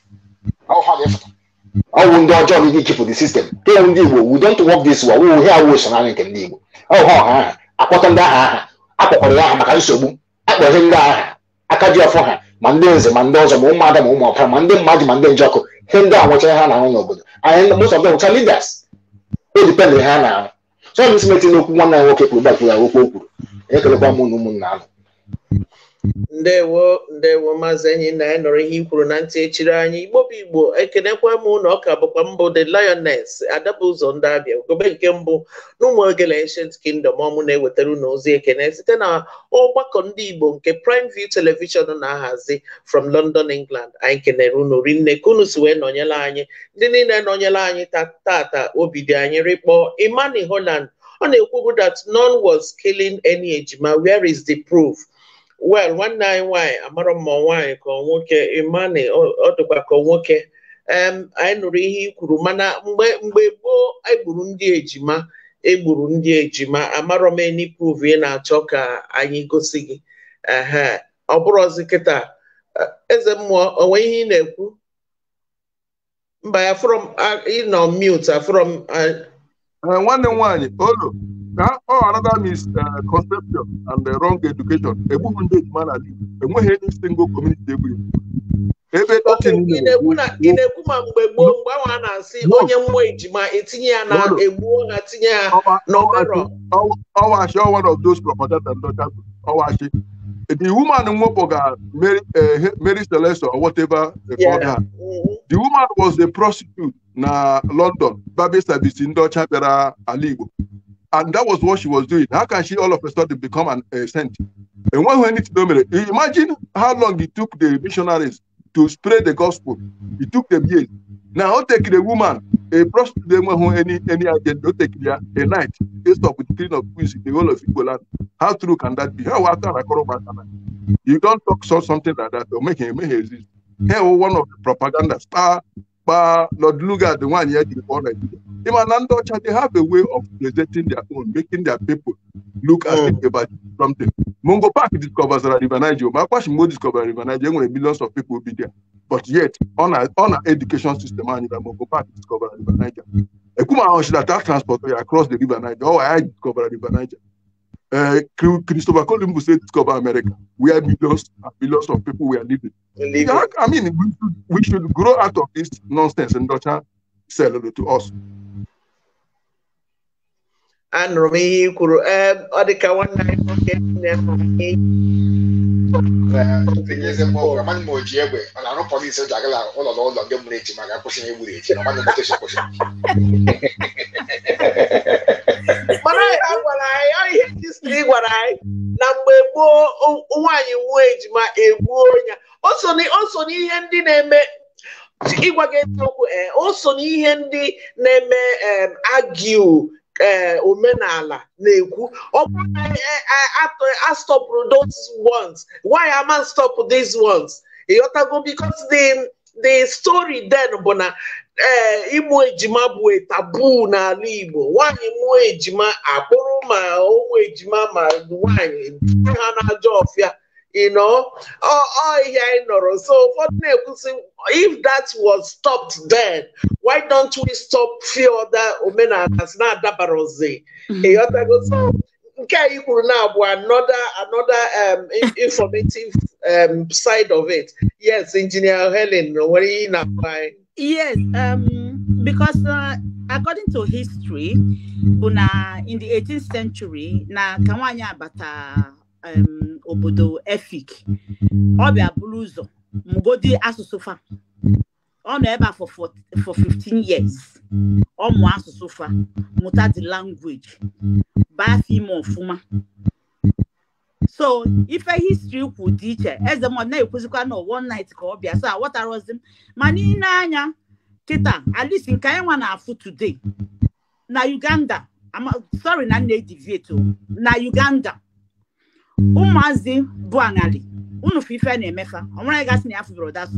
ọwụ ndị ọjọọ na ike chịpụ the system kewu ndị igbo we don't work this way wụ he so esonarị nke ndị igbo ọha ọha aha akpọta ndị aha aha akpọkwara ya maka nsogbu akpọghị ndị aha aka ji ọfọ ha ma ndị nze ma ndị ọzọ ma ụmụada ma ụmụ ma ndị mmadụ ma ndị njọkụ he ndị a nwechara ha na n'obodo anyị ha na chọọ m isi metụ n'okwu nwanne ya nwoke kwuru bakwuru ya okwu o kwuru ekelekwa mụ na ụmụnna ahụ ndewo ndewo maazị enyi na ya nọrọ ihe ikwuru na ntị echiri anyị igbo bụ igbo ekenekwa m na ọka bụkwa mbụ the lioness adabụ ụzọ ndị abịa ogobe nke mbụ n'ụmụ ogele ancient kingdom ọmụ na-ewetara unu ozi ekene site na ọgbakọ ndị igbo nke prime view television na-ahazi from london england anyị kenere unu rinne kunu unu si wee nọnyere anyị ndị niile nọnyere anyị tata obi dị anyị rịkpọ imani holland ọ na-ekwu that none was killing any ejima where is the proof wel nwanne anyị nwaanyị amarọ mma nwaanyị ka nwoke imani ọ dịkwa ka nwoke anyị nụrụ ihe i kwuru mana mgbe mgbe gboo egburu ndị ejima egburu ndị ejima amarọ m enipuv ị na-achọ ka anyị gosi gị ehe ọ bụrụzi kịta eze mmụọ onwe ihe ị na-ekwu mba afrọm ịnọ mute nwanne m nwaanyị olu ka ọ another misconception eh, and eh, wrong education egbughị ndị ejima n'ala Igbo enweghị any single community egburu ebe ị na-ekwu ma mgbe gboo mgbe ahụ a na-asị onye mmụọ ejima etinye ya na egbuo ha tinye ya n'ọbara ọwashi one of those propaganda ndọcha ọwashi the woman nwepụ ga Mary eh, Mary Celeste or whatever they called her the woman was a prostitute na London babi service ndị ọcha bịara ala and that was what she was doing. How can she all of a sudden become an a saint? And when we need to imagine how long it took the missionaries to spread the gospel. It took them years. Now take the woman, a prostitute any any agent, don't take a night, they stop with clean of queens in the whole of Igbo How true can that be? How can after You don't talk so something like that they'll make him make exist. Here one of the propaganda star, but Lord at the one here the one even Anandocha, they have a way of presenting their own, making their people look as if oh. about something. Mungo Park discovers River Niger. Makwashimo discovers River Niger when millions of people will be there. But yet, on our, on our education system, Mungo Park discovers River Niger. Ekuma Onshida, that transport oh, across the River Niger. Oh, I discover River Niger. Uh, Christopher Columbus said discover America, where millions and millions of people were living. I mean, we should, we should grow out of this nonsense and not sell it to us. anụrụ m ihe ị kwuru ee ọ dị ka nwanne anyị nwoke nne m ọ e, e, e, na-arụ ji ụlọ echi ma ga-akwụsị na echi gwara anyị ihe gwara anyị na mgbe gboo nwaanyị nwuo ejima egbuo ya o so n'ihe ndị na-eme ịgwa gị eziokwu n'ihe ndị na-eme agiu Eh, omenala na-ekwu ọ bụrụ eh, eh, astọpụ those ones why am I stop these ones ịghọtago because the the story then bụ na ee ịmụ ejima bụ tabu n'ala Igbo nwanyị mụọ ejima akpụrụ ma ụmụ ejima ma nwanyị ha n'ajọ ọfịa you know, oh, oh yeah, no. So if that was stopped then, why don't we stop few other omenanas na dabarozi? So mm-hmm. okay, you um, kwuru now bụ another another um, informative um, side of it. Yes, Engineer Helen, what you na-agwa Yes, um, because uh, according to history, in the 18th century, na kawanya bata. obodo efik ọ bịa buru ụzọ mgodi asụsụ fa ọ nọ ebe a for 15 years ọ mụọ asụsụ fa mụta the language baa afọ ime ọfụma so ife histri kwu dị iche eze m na-ekwuzikwa na one night ka ọ bịa so aghọtarozi m ma n'ile anya kịta alisi nke anyị nwa na-afụ today na uganda sorry na nna ediviet na uganda ụmụazị bụ aṅali unu fụ ife na-emefa ọnwere gasị na ya fụbụrụ that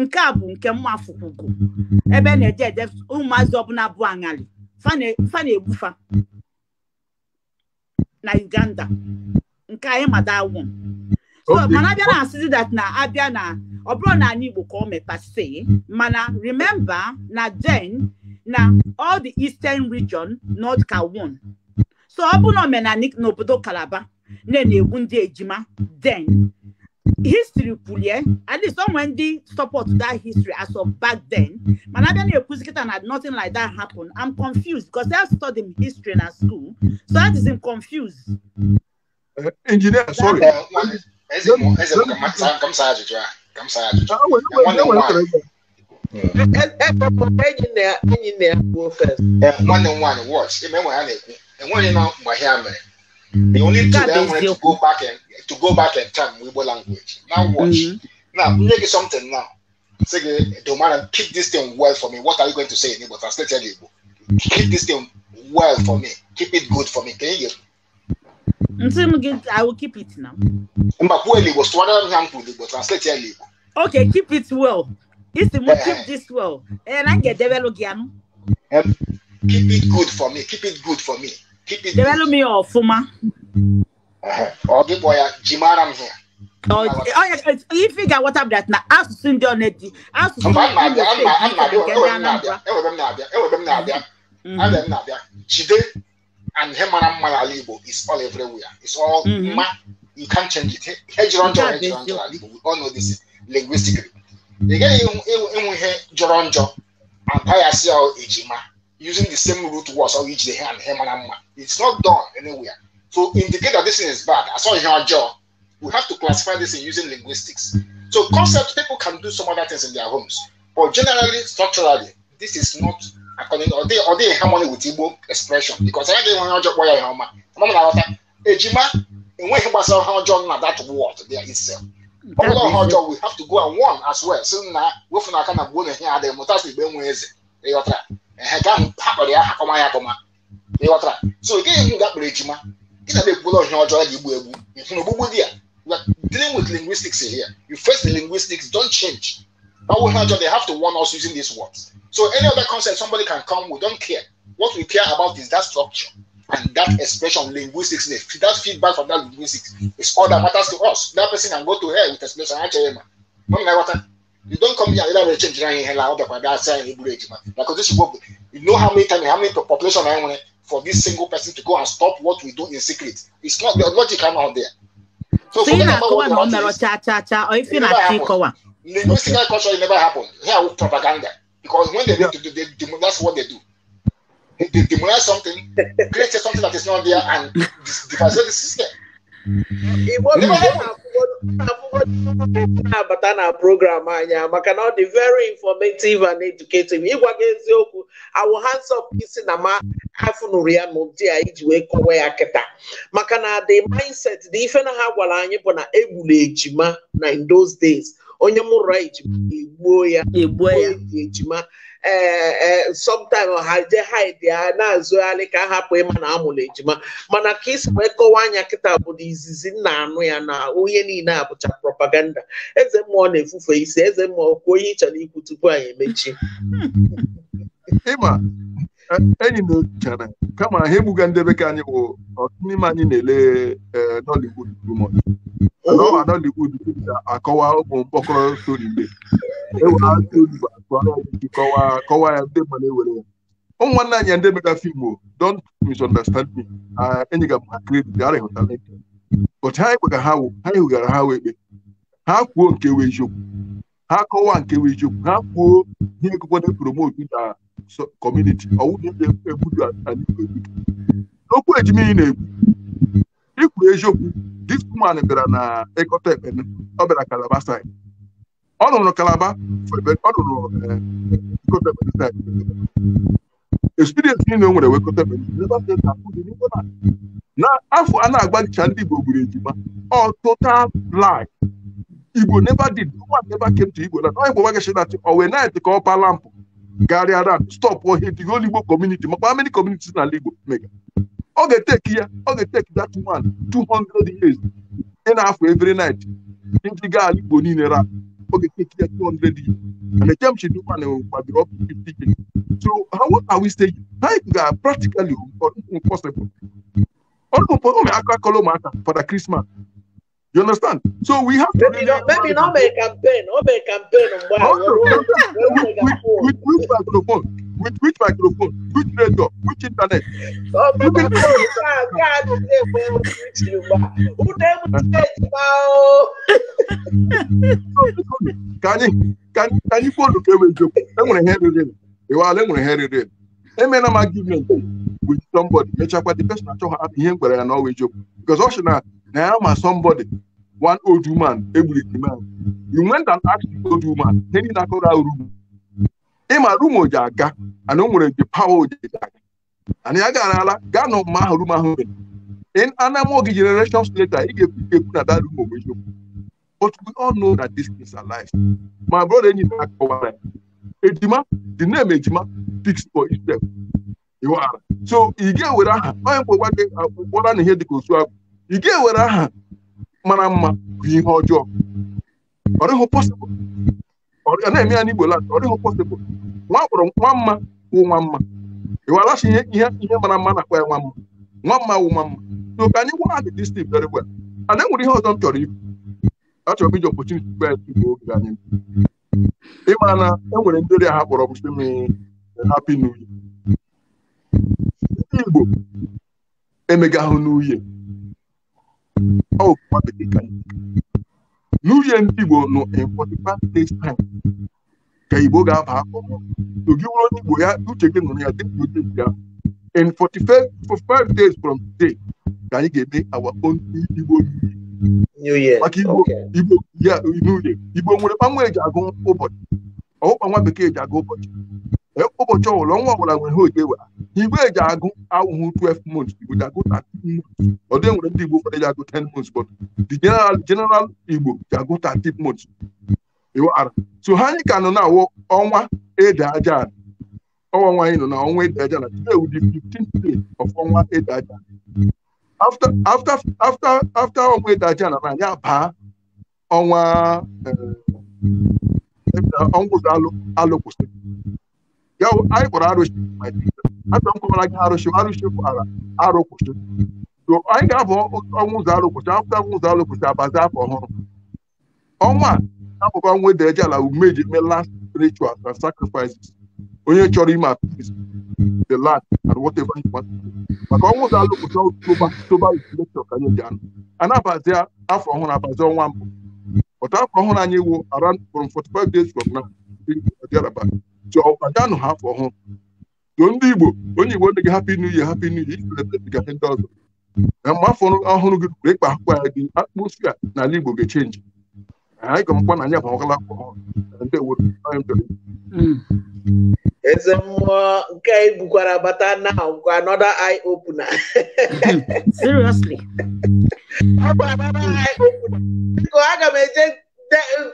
nke a bụ nke mma afụkwugo ebe na-eje ede ụmụazị ọbụla bụ aṅali fa na-egbufa na Uganda nke anyị madawụ mana abịa na asịzi dat na abịa na ọ bụrụ na anyị Igbo ka ọ mepasị mana remember na den na all the eastern region North ka so ọ bụ na omenani n'obodo kalaba na na-egbu ndị ejima den histri kwulie at least onwe ndị support that history as of back then mana abịa na-ekwuzi kịta na nothing like that happen i'm confused because I studied history na school so that is confused. Eh, engineer sorry. eze ka m saa ajụjụ a ka m saa ajụjụ eh, nwanne m nwaanyị watch ime enwe ha na-ekwu And when you know Mahame, the only mm. thing they wanted to go back and to go back in time Weibo language. Now mm-hmm. watch. Mm-hmm. Now make it something now. Say the man keep this thing well for me. What are you going to say in Igbo? Translate Igbo. Keep this thing well for me. Keep it good for me. Can you hear me? I will keep it now. Okay, keep it well. It's the most keep this well. Eh, and I get develop again. Keep it good for me. Keep it good for me. Develop me or Fuma. Oh, give boy uh, Jimara here. Uh. Oh, oh, you figure what up that now? Ask to send your net. Ask to send your net. I'm not there. I'm not there. I'm not there. I'm not there. I'm not there. Mm-hmm. Jide and Hemana Malalibo is all everywhere. It's all mm-hmm. ma. You can't change it. Hedgeron to Hedgeron to Alibo. We all know this linguistically. You get it. You hear Joronjo. And Paya see how Ejima using the same route was or each the hand him and amma. It's not done anywhere. So indicate that this thing is bad. I saw in our jaw. We have to classify this in using linguistics. So concept people can do some other things in their homes, but generally structurally this is not according or they or they in harmony with Igbo expression because I get one in when he was how John that word there itself. Although how John we have to go and one as well. So now we from kind of go here the mutas be when ɛhɛka ha kɔde akɔma yɛ akɔma ne wɔtra so ke yɛ nga kpere adwuma ke na bɛku lɛ ɔhwɛ ɔjɔ yɛ bu ebu nfunu bubu di a dealing with linguistics here you face the linguistics don't change that will not they have to warn us using these words so any other concept somebody can come we don't care what we care about is that structure and that expression linguistics that feedback from that linguistics is all that matters to us that person can go to hell with explanation actually man no matter what You don't come here and you change your hand out of that's a Because this work, you know how many times, how many population I want for this single person to go and stop what we do in secret. It's not the logic I'm out there. So, so you know, what what is, cha, cha, cha, or if you're not happened. Linguistic okay. culture, it never happened. Here with propaganda. Because when they, yeah. do, they, they, that's what they do. They demolish something, create something that is not there, and devastate the system. igbo na-abata na-abụghị na program anya maka na ọ dị very informative and educative ịgwa gị eziokwu awụ hands up isi na ma afụnụrụ ya n'ụdị a iji wee kọwa ya kịta maka na the mindset dị ife na ha gwara anyị bụ na egbula ejima na in those days onye mụrụ ejima egbuo ya egbuo ya ejima ee somtim ha je haidi na-azụgharị ka a hapụ ịma na amụrụ ejima mana ka isi wee kọwa anya kịta bụ na izizi nna anụ ya na onye niile a bụcha propaganda eze mmụọ na-efufe isi eze mmụọ kwuo onye ị chọrọ ikwu tupu anyị emechi enyi na ochere kama ha egbuga ndị bekee anyị bụ ọtụtụ n'ime anyị na-ele e, Nollywood ọwa Nollywood akọwa ụmụ mkpọkọrọ stori mgbe e kọwa ya ndị mmadụ ewere ya ụmụnwanne anyị ndị mega fim o don't misunderstand me enyi ga ma kredit arịhụtala ụbọchị anyị kpega ha wụ ha hụgara ha wee ekpe ha kwuo nke wee eziokwu ha kọwaa nke bụ eziokwu ha kwuo ihe ekekwana promote na kọmuniti n'okwu ejimiri na-ekwu ikwu eziokwu dis woman bịara na ịkọta ekpene ọ bịara kalaba side ọ nụrụ kalaba ọ nụrụ ịkọta eh, ekpene side experience niile o nwere wee kọta ekpene na afọ a na-agbagicha ndị Igbo gburu ejima ọ tụta lie Igbo never did. No one never came to Igbo land. Ọ Igbo Wagashi that or when night take up a lamp, carry around, stop or hit the whole Igbo community. makwa many communities na Igbo mega? o ga-eteki ya, o ga-eteki that one 200 years. Ị na-afọ every night. Ndị gaa Igbo niile ra. o ga-eteki ya 200 years. And the Jamshi Duman gbadoro up 50 years. So how what are we saying? Ha ga practically impossible. Ọ na-akọ akọla ụmụaka fada Krismas You understand? So we have to. Maybe, really maybe not make campaign. Not make campaign. With which microphone? With which microphone? Which radio? Which internet? Oh, you can can you can can you go to Kevin? I'm gonna hear it in. You are going to hear it in. Amen. I'm going to give argument with somebody. Make sure the person I talk about i here, but I know with you because also now now I'm somebody. one old woman egburu man you went and asked the old woman ịma rumu aga aga garala gaa na ahụ in generations later ị ga-ekwu a that room but we all know that my enyi na-akọwara ejima the name ejima speaks for itself so ị ga aha onye mkpọgwa gị kpọra na ihe dịka osu ị ga-ewere mara mma bụ ihe ọjọọ ọ dịghị pọsịbụl ọ na-eme ya n'igbo land ọ dịghị pọsịbụl nwa kpọrọ nwa mma wụ nwa mma ịwalachi ihe ihe ihe mara mma na-akpọ ya nwa mma nwa mma wụ nwa mma so ka anyị gwa adị dis thing very well and enwere ihe ọzọ m chọrọ ibu achọrọ m iji opportunity gbe igbo oge anyị ịma na enwere ndị ọrịa ha kpọrọ m si m happy new year ndị igbo emegahụ n'uhie n'uhie ndị Igbo nọ days time ka Igbo ga-aba akụkọ gị wụrụ onye Igbo ya uche gị nụrụ ya ya in 45 days from today ka anyị ga-eme our own Igbo maka Igbo ya n'uhie Igbo nwere eji agụ ụbọchị ọwụkpa nwa bekee ji agụ ụbọchị ụbọchị ọbụla nwa ọbụla nwere ha oge were igwe eji agụ awụhụ 12 months igbo ji agụ 13 months ọ dị nwere ndị igbo ụfọdụ ji agụ 10 months but the general general igbo ji agụ 13 months iwara so ha anyị ka nọ na awụ ọnwa ede aja ọnwa nwaanyị nọ na ọnwa ede aja na today will be 15th day of ọnwa ede aja after after after after ọnwa ede aja na anyị abaa ọnwa eh, ọnwa ụzọ alụ kwụsịrị ya anyị kpọrọ arụsị ata m gị arụsị arụsị pụtara arụ kwụsị anyị ga-abụ ọnwụ ụzọ arụ kwụsị akwụkwọ ọnwụ ụzọ arụ abazi afọ ọhụrụ ọnwa a abụkwa nwa ala umeji mee last onye chọrọ ime apis the land and whatever you maka ọnwụ ụzọ arụ ka anyị anụ a abazi afọ ọhụrụ abazi ọnwa mbụ ọtụ anyị wụ jụọ kwadanụ ha afọ ọhụrụ jụọ ndị Igbo onye Igbo ndị gị hapụ inu ihe hapụ inu ihe ga ndị ọzọ na mgbe afọ ọhụrụ gị ruru ịkpa akwụkwọ ya gị akpụkpọ na ala Igbo ga-echenji anyị ga-amụkwa akwụkwọ ọhụrụ hmm. eze mmụọ nke anyị bata na eye opener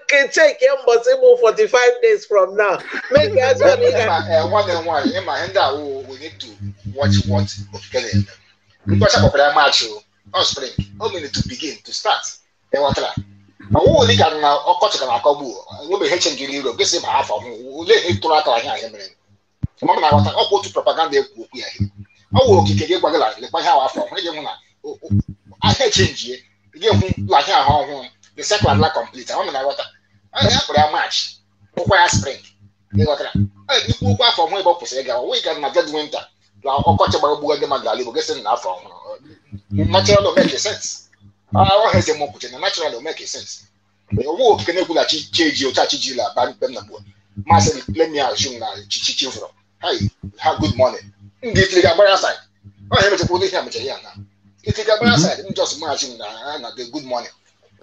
can take him but even 45 days from now. Make us one and one. In my end, oh, we need to watch what Okikele. Because of that match, on oh. spring, oh, we need to begin to start. Then what? Ma wo wòle ka na ọkọ chọrọ na akọgbu o be hechen gị n'iro gị sị half of them. ole ihe tụrụ aka ahịa ahịa mere ma m na-aghọta ọkwa otu propaganda ekwu okwu ya ọ wụ okike gị gwagịla lekwa ihe ahụ afọ hụ ị ga-ehụ na ahịa chenjie gị hụ lahịa ahụ ọhụrụ the cycle adla complete àwọn mìíràn ghọta ọ na-akpọrọ ya march ụkwa ya spring ịghọtara ọ dịkwu ụkwa afọ ọhụrụ ebe ọ kwụsịrị ịga wee gara na dead winter na ọkọchị gbara ogbugo gị mmadụ ala igbo gị sị na afọ ọhụrụ natural make sense ọ ha eze m kwuche na natural make sense But you na-ekwulachi chi eji oche achiji la aba mkpe m na gbuo masị let me assume that chichi chivụrụ have good morning ndị itiri ga-agbara side ọ ha emechakwa ụdị ihe a mechara ya na itiri ga-agbara side m just imagine that. na ha good morning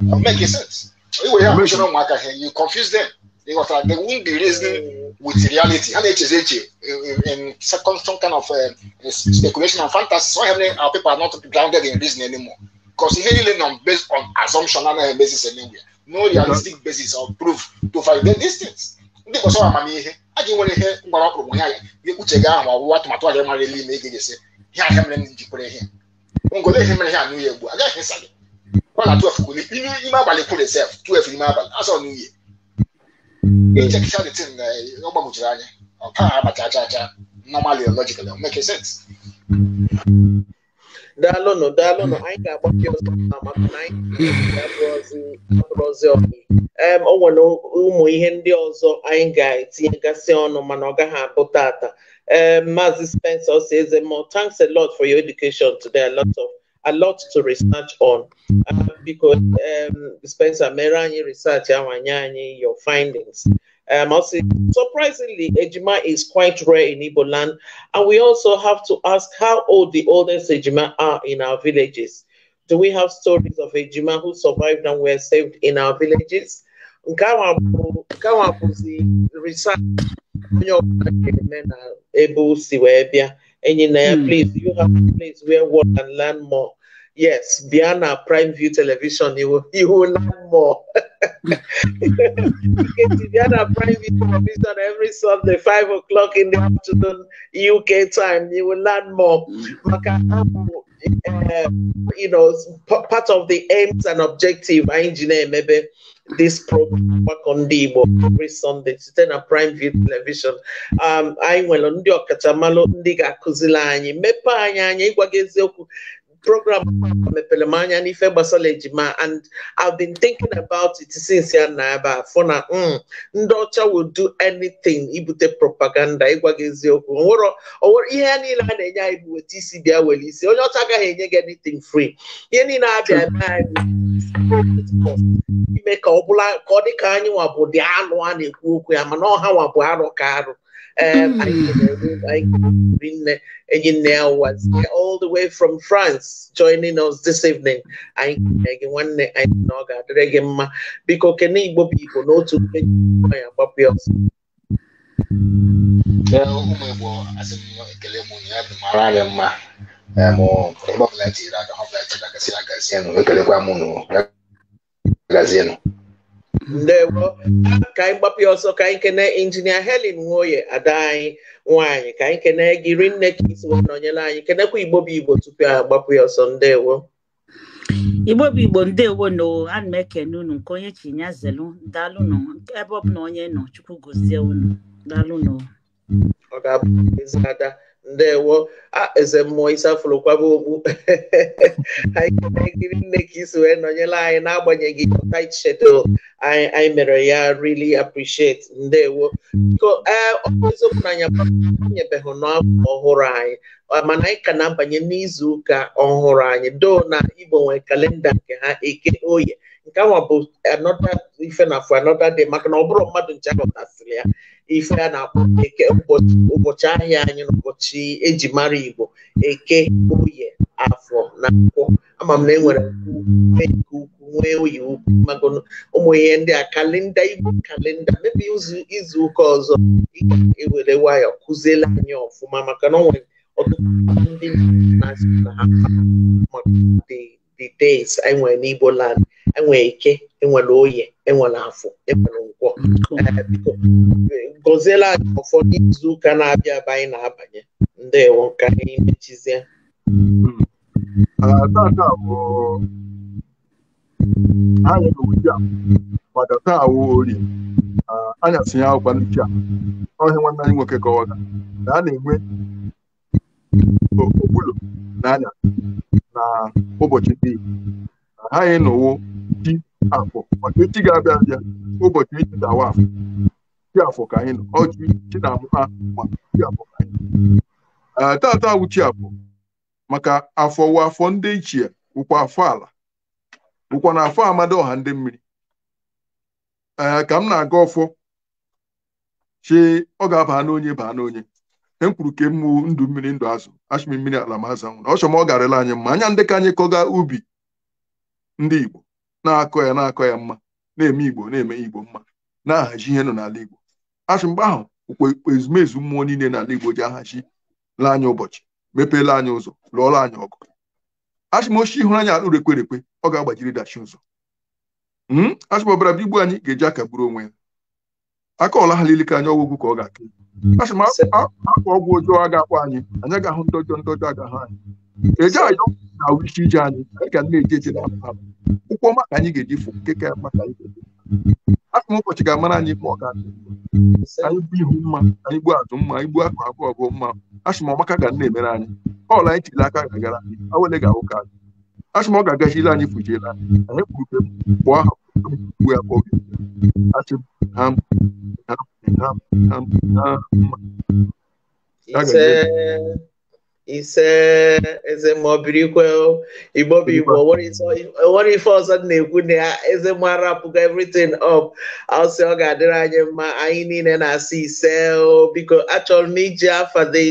I'm making mm. sense. Anyway, I'm sure no matter how you confuse them. They got they won't be reasoning mm. with reality. And it is it uh, uh, in second some kind of uh, speculation and fantasy. So having uh, our people are not grounded in reason anymore. Because heavily on based on assumption and a basis anywhere. No realistic basis or proof to validate these things. Ndị ọsọ amamihe, a ga-enwere ihe mgbara ọkpụrụ ya ya, ga-ekwuche gị ahụ ọwụwa atụmatụ agaghị mara ele ime ị ga-esi, ihe ahịa going to jikwere ihe. Ngole ihe mere ihe a n'ihe ugbu, agaghị esa gị. ọla 12 ime ime abalị kwuru sef 12 ime abalị asọ n'iyi echekisha the tin ọ gbagwochiri anya ọka abacha acha acha normally logical make sense daalụnụ daalụnụ anyị ga-agbake ọzọ maka na anyị ọnụ o nwere ụmụ ihe ndị ọzọ anyị ga-etinyegasị ọnụ mana ọ gaghị abụ tata ee maazị spencer ọsọ eze mọ thanks a lot for your education today a lot a lot to research on uh, because um, Spencer Merany research your findings. Um, also, surprisingly, Ejima is quite rare in Igbo land, and we also have to ask how old the oldest Ejima are in our villages. Do we have stories of Ejima who survived and were saved in our villages? research Engineer, please. Hmm. place, you have a place where one can learn more. Yes, beyond our Prime View Television, you will, you will learn more. our (laughs) Prime View Television every Sunday, 5 o'clock in the afternoon, UK time. You will learn more. Uh, you know, part of the aims and objective, engineer, maybe. this program Gbakọ Ndị Igbo every Sunday site na Prime View Television anyị nwere ndị ọkachamalụ ndị ga-akụzili anyị mepee anyị anya ịgwaga eziokwu program mepere m anya n'ife gbasara ejima and I've been thinking about it since ya na ebe afọ na ndị ọcha will do anything ibute propaganda ịgwa gị eziokwu onwere ihe ya niile a na-enye anyị bụ weta isi bịa were isi onye ọcha agaghị enye gị anything free ihe niile abịa eme anyị ime ka ọ bụla ka ọ dị ka anyị nwa bụ dị anụ a na-ekwu okwu ya mana ọha nwa bụ arụ ka arụ hmm. all the way from France joining us this evening anyị kene gị nwanne anyị na ọ ga-adịrị gị mma biko kene igbo bụ igbo n'otu mgbe ya ya ọsọ magazinụ ndewo ka anyị gbapụ ọsọ ka anyị kene injinia Helen Nwoye ada anyị nwaanyị ka anyị kene gị rinne ka isi nọnyere anyị kenekwa igbo bụ igbo tupu a gbapụ ya ọsọ ndewo igbo bụ igbo ndewo na ana m ekene unu nke onye chi ya zelu daalụnụ ebe ọ bụla onye nọ chukwu gozie unu daalụnụ ọ ga-abụ ezi ada ndewo eze mmụọ isi kwaba okpu (laughs) anyị ekiri nne ka isi wee nọnyere anyị n'agbanyeghị tight schedule anyị mere ya really appreciate ndewo biko ee ọeziokwu na anyanyebeghị n'afọ ọhụrụ anyị mana anyị ka na-abanye n'izu ụka ọhụrụ anyị do na igbo nwee kalenda nke ha eke oye nke ahụ bụ anọda ife na afọ anọda dị maka na ọ bụrụ mmadụ nche ahụtasịrị ya ife a na-akpọ eke ụbọchị ahịa anyị na ụbọchị eji mara igbo eke oye afọ na akwụkwọ ama m na enwere nwee nke ukwu nwee oyi ukwu magonu ụmụ ihe ndị a kalenda igbo kalenda mebi izu ụka ọzọ ị e ewere nwayọ kụziele anyị ọfụma maka na ọ nwere ọtụtụ ndị na-asị na ha maka the days enwere n'Igbo land enwere ike enwere oye enwere afọ enwere nkwọ uh, gọziela anyị ụfọdụ izuụka na-abịa ebe anyị na-abanye ndị ndewo ka anyị mechizie uh, tata bụ anyị n'ụdị a maka taa awụ ori anyasị ya akwụkwa n'uche a ọhịa nwanne anyị nwoke kọwara na a na-enwe okpulo na anya na ụbọchị niile ha ịnọwo chi afọ maka echi ga-abịa abịa ụbọchị echi dawa afọ chi afọ ka anyị nọ ọjị chi na-amụ ha ma chi afọ ka anyị nọ tata awụ chi afọ maka afọ wụ afọ ndị ichie wụkwa afọ ala wụkwa na afọ amadi ọha ndị mmiri ee ka m na-aga ọfọ chi ọ ga-aba n'onye baa n'onye e kwuru ke ndụ mmiri ndụ azụ ashịmị mmiri ala mazụ nwụrụ ọ ọ garịla anyị mma anya ndị ka anyị kọga ubi ndị igbo na-akọ ya na-akọ ya mma na-eme igbo na-eme igbo mma na-ahazi ihe nọ n'ala igbo ashị mgbe ahụ okpukpe ezumezu mmụọ niile n'ala igbo ji ahazi la anyị ụbọchị mepeela anyị ụzọ lụọla anyị ọgụ ashịmochi hụrụ anyị alụ rekwerekwe ọ ga-agbajiri dachi ụzọ ashịm ọbara bụ igbu anyị ga-eji aka onwe ya aka ọla ha lilika anya ọgwụgwụ ka ọ ga akụ a sị akwa ọgwụ anyị anyị agahụ ndọjọ ndọjọ agahụ anyị eje ayọ na isi ije anyị ga na eji na ka anyị ga-eji fụ nke ka anyị ụbọchị ga-amara anyị ma ọ ga anyị bụ ihu akụ ọgụ mma asị ga emere anyị ọl anyị chiri aka ga-agara anyị anyị asị we are Ham, ham, ham, ham, ham. Ise, eze ma ọ biri ikwe nwere ife ọzọ na-ekwu na ya eze ma rapụgo everything up ọsị ọ ga-adịrị anyị mma anyị niile na-asị ise biko achọrọ m iji afa the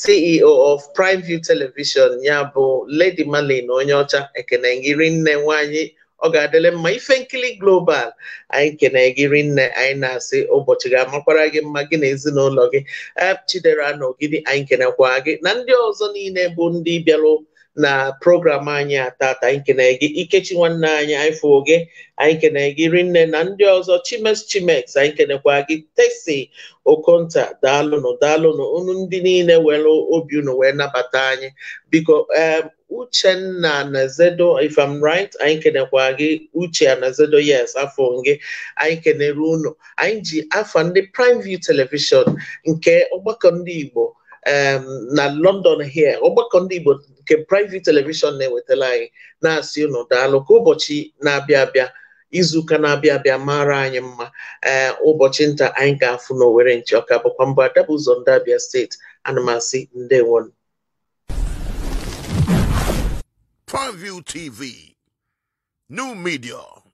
CEO of Prime View Television ya bụ Lady na onye ọcha ekene gị nne nwanyị ọ ga-adịle mma ife nkiri global anyị kene gị rinne anyị na-asị ụbọchị ga-amakwara gị mma gị na ezinụlọ gị chidera na ogidi anyị kenekwa gị na ndị ọzọ niile bụ ndị bịalụ na program anyị atata anyị kene gị ikechi nwanne anyị anyị gị anyị kene gị nne na ndị ọzọ chimes Chimes anyị kenekwa gị tesi okonta daalụnụ daalụnụ unu ndị niile were obi unu wee nabata anyị biko uchenna nazedo if i'm right anyị kenekwa gị uche nazedo yes afọ gị anyị kenere unu anyị ji afa ndị prime view televishon nke ọgbakọ ndị igbo Um, na London here ọgbakọ ndị Igbo nke private television na ewetara anyị na-asị ụnụ daalụ ka ụbọchị na-abịa abịa izuụka na-abịa abịa mara anyị mma eh, ụbọchị nta anyị ga-afụ n'Owerri ọka bụkwa mbụ Adabụ ụzọ ndị Abia steeti anụmasi ndewonu Purview TV, new media.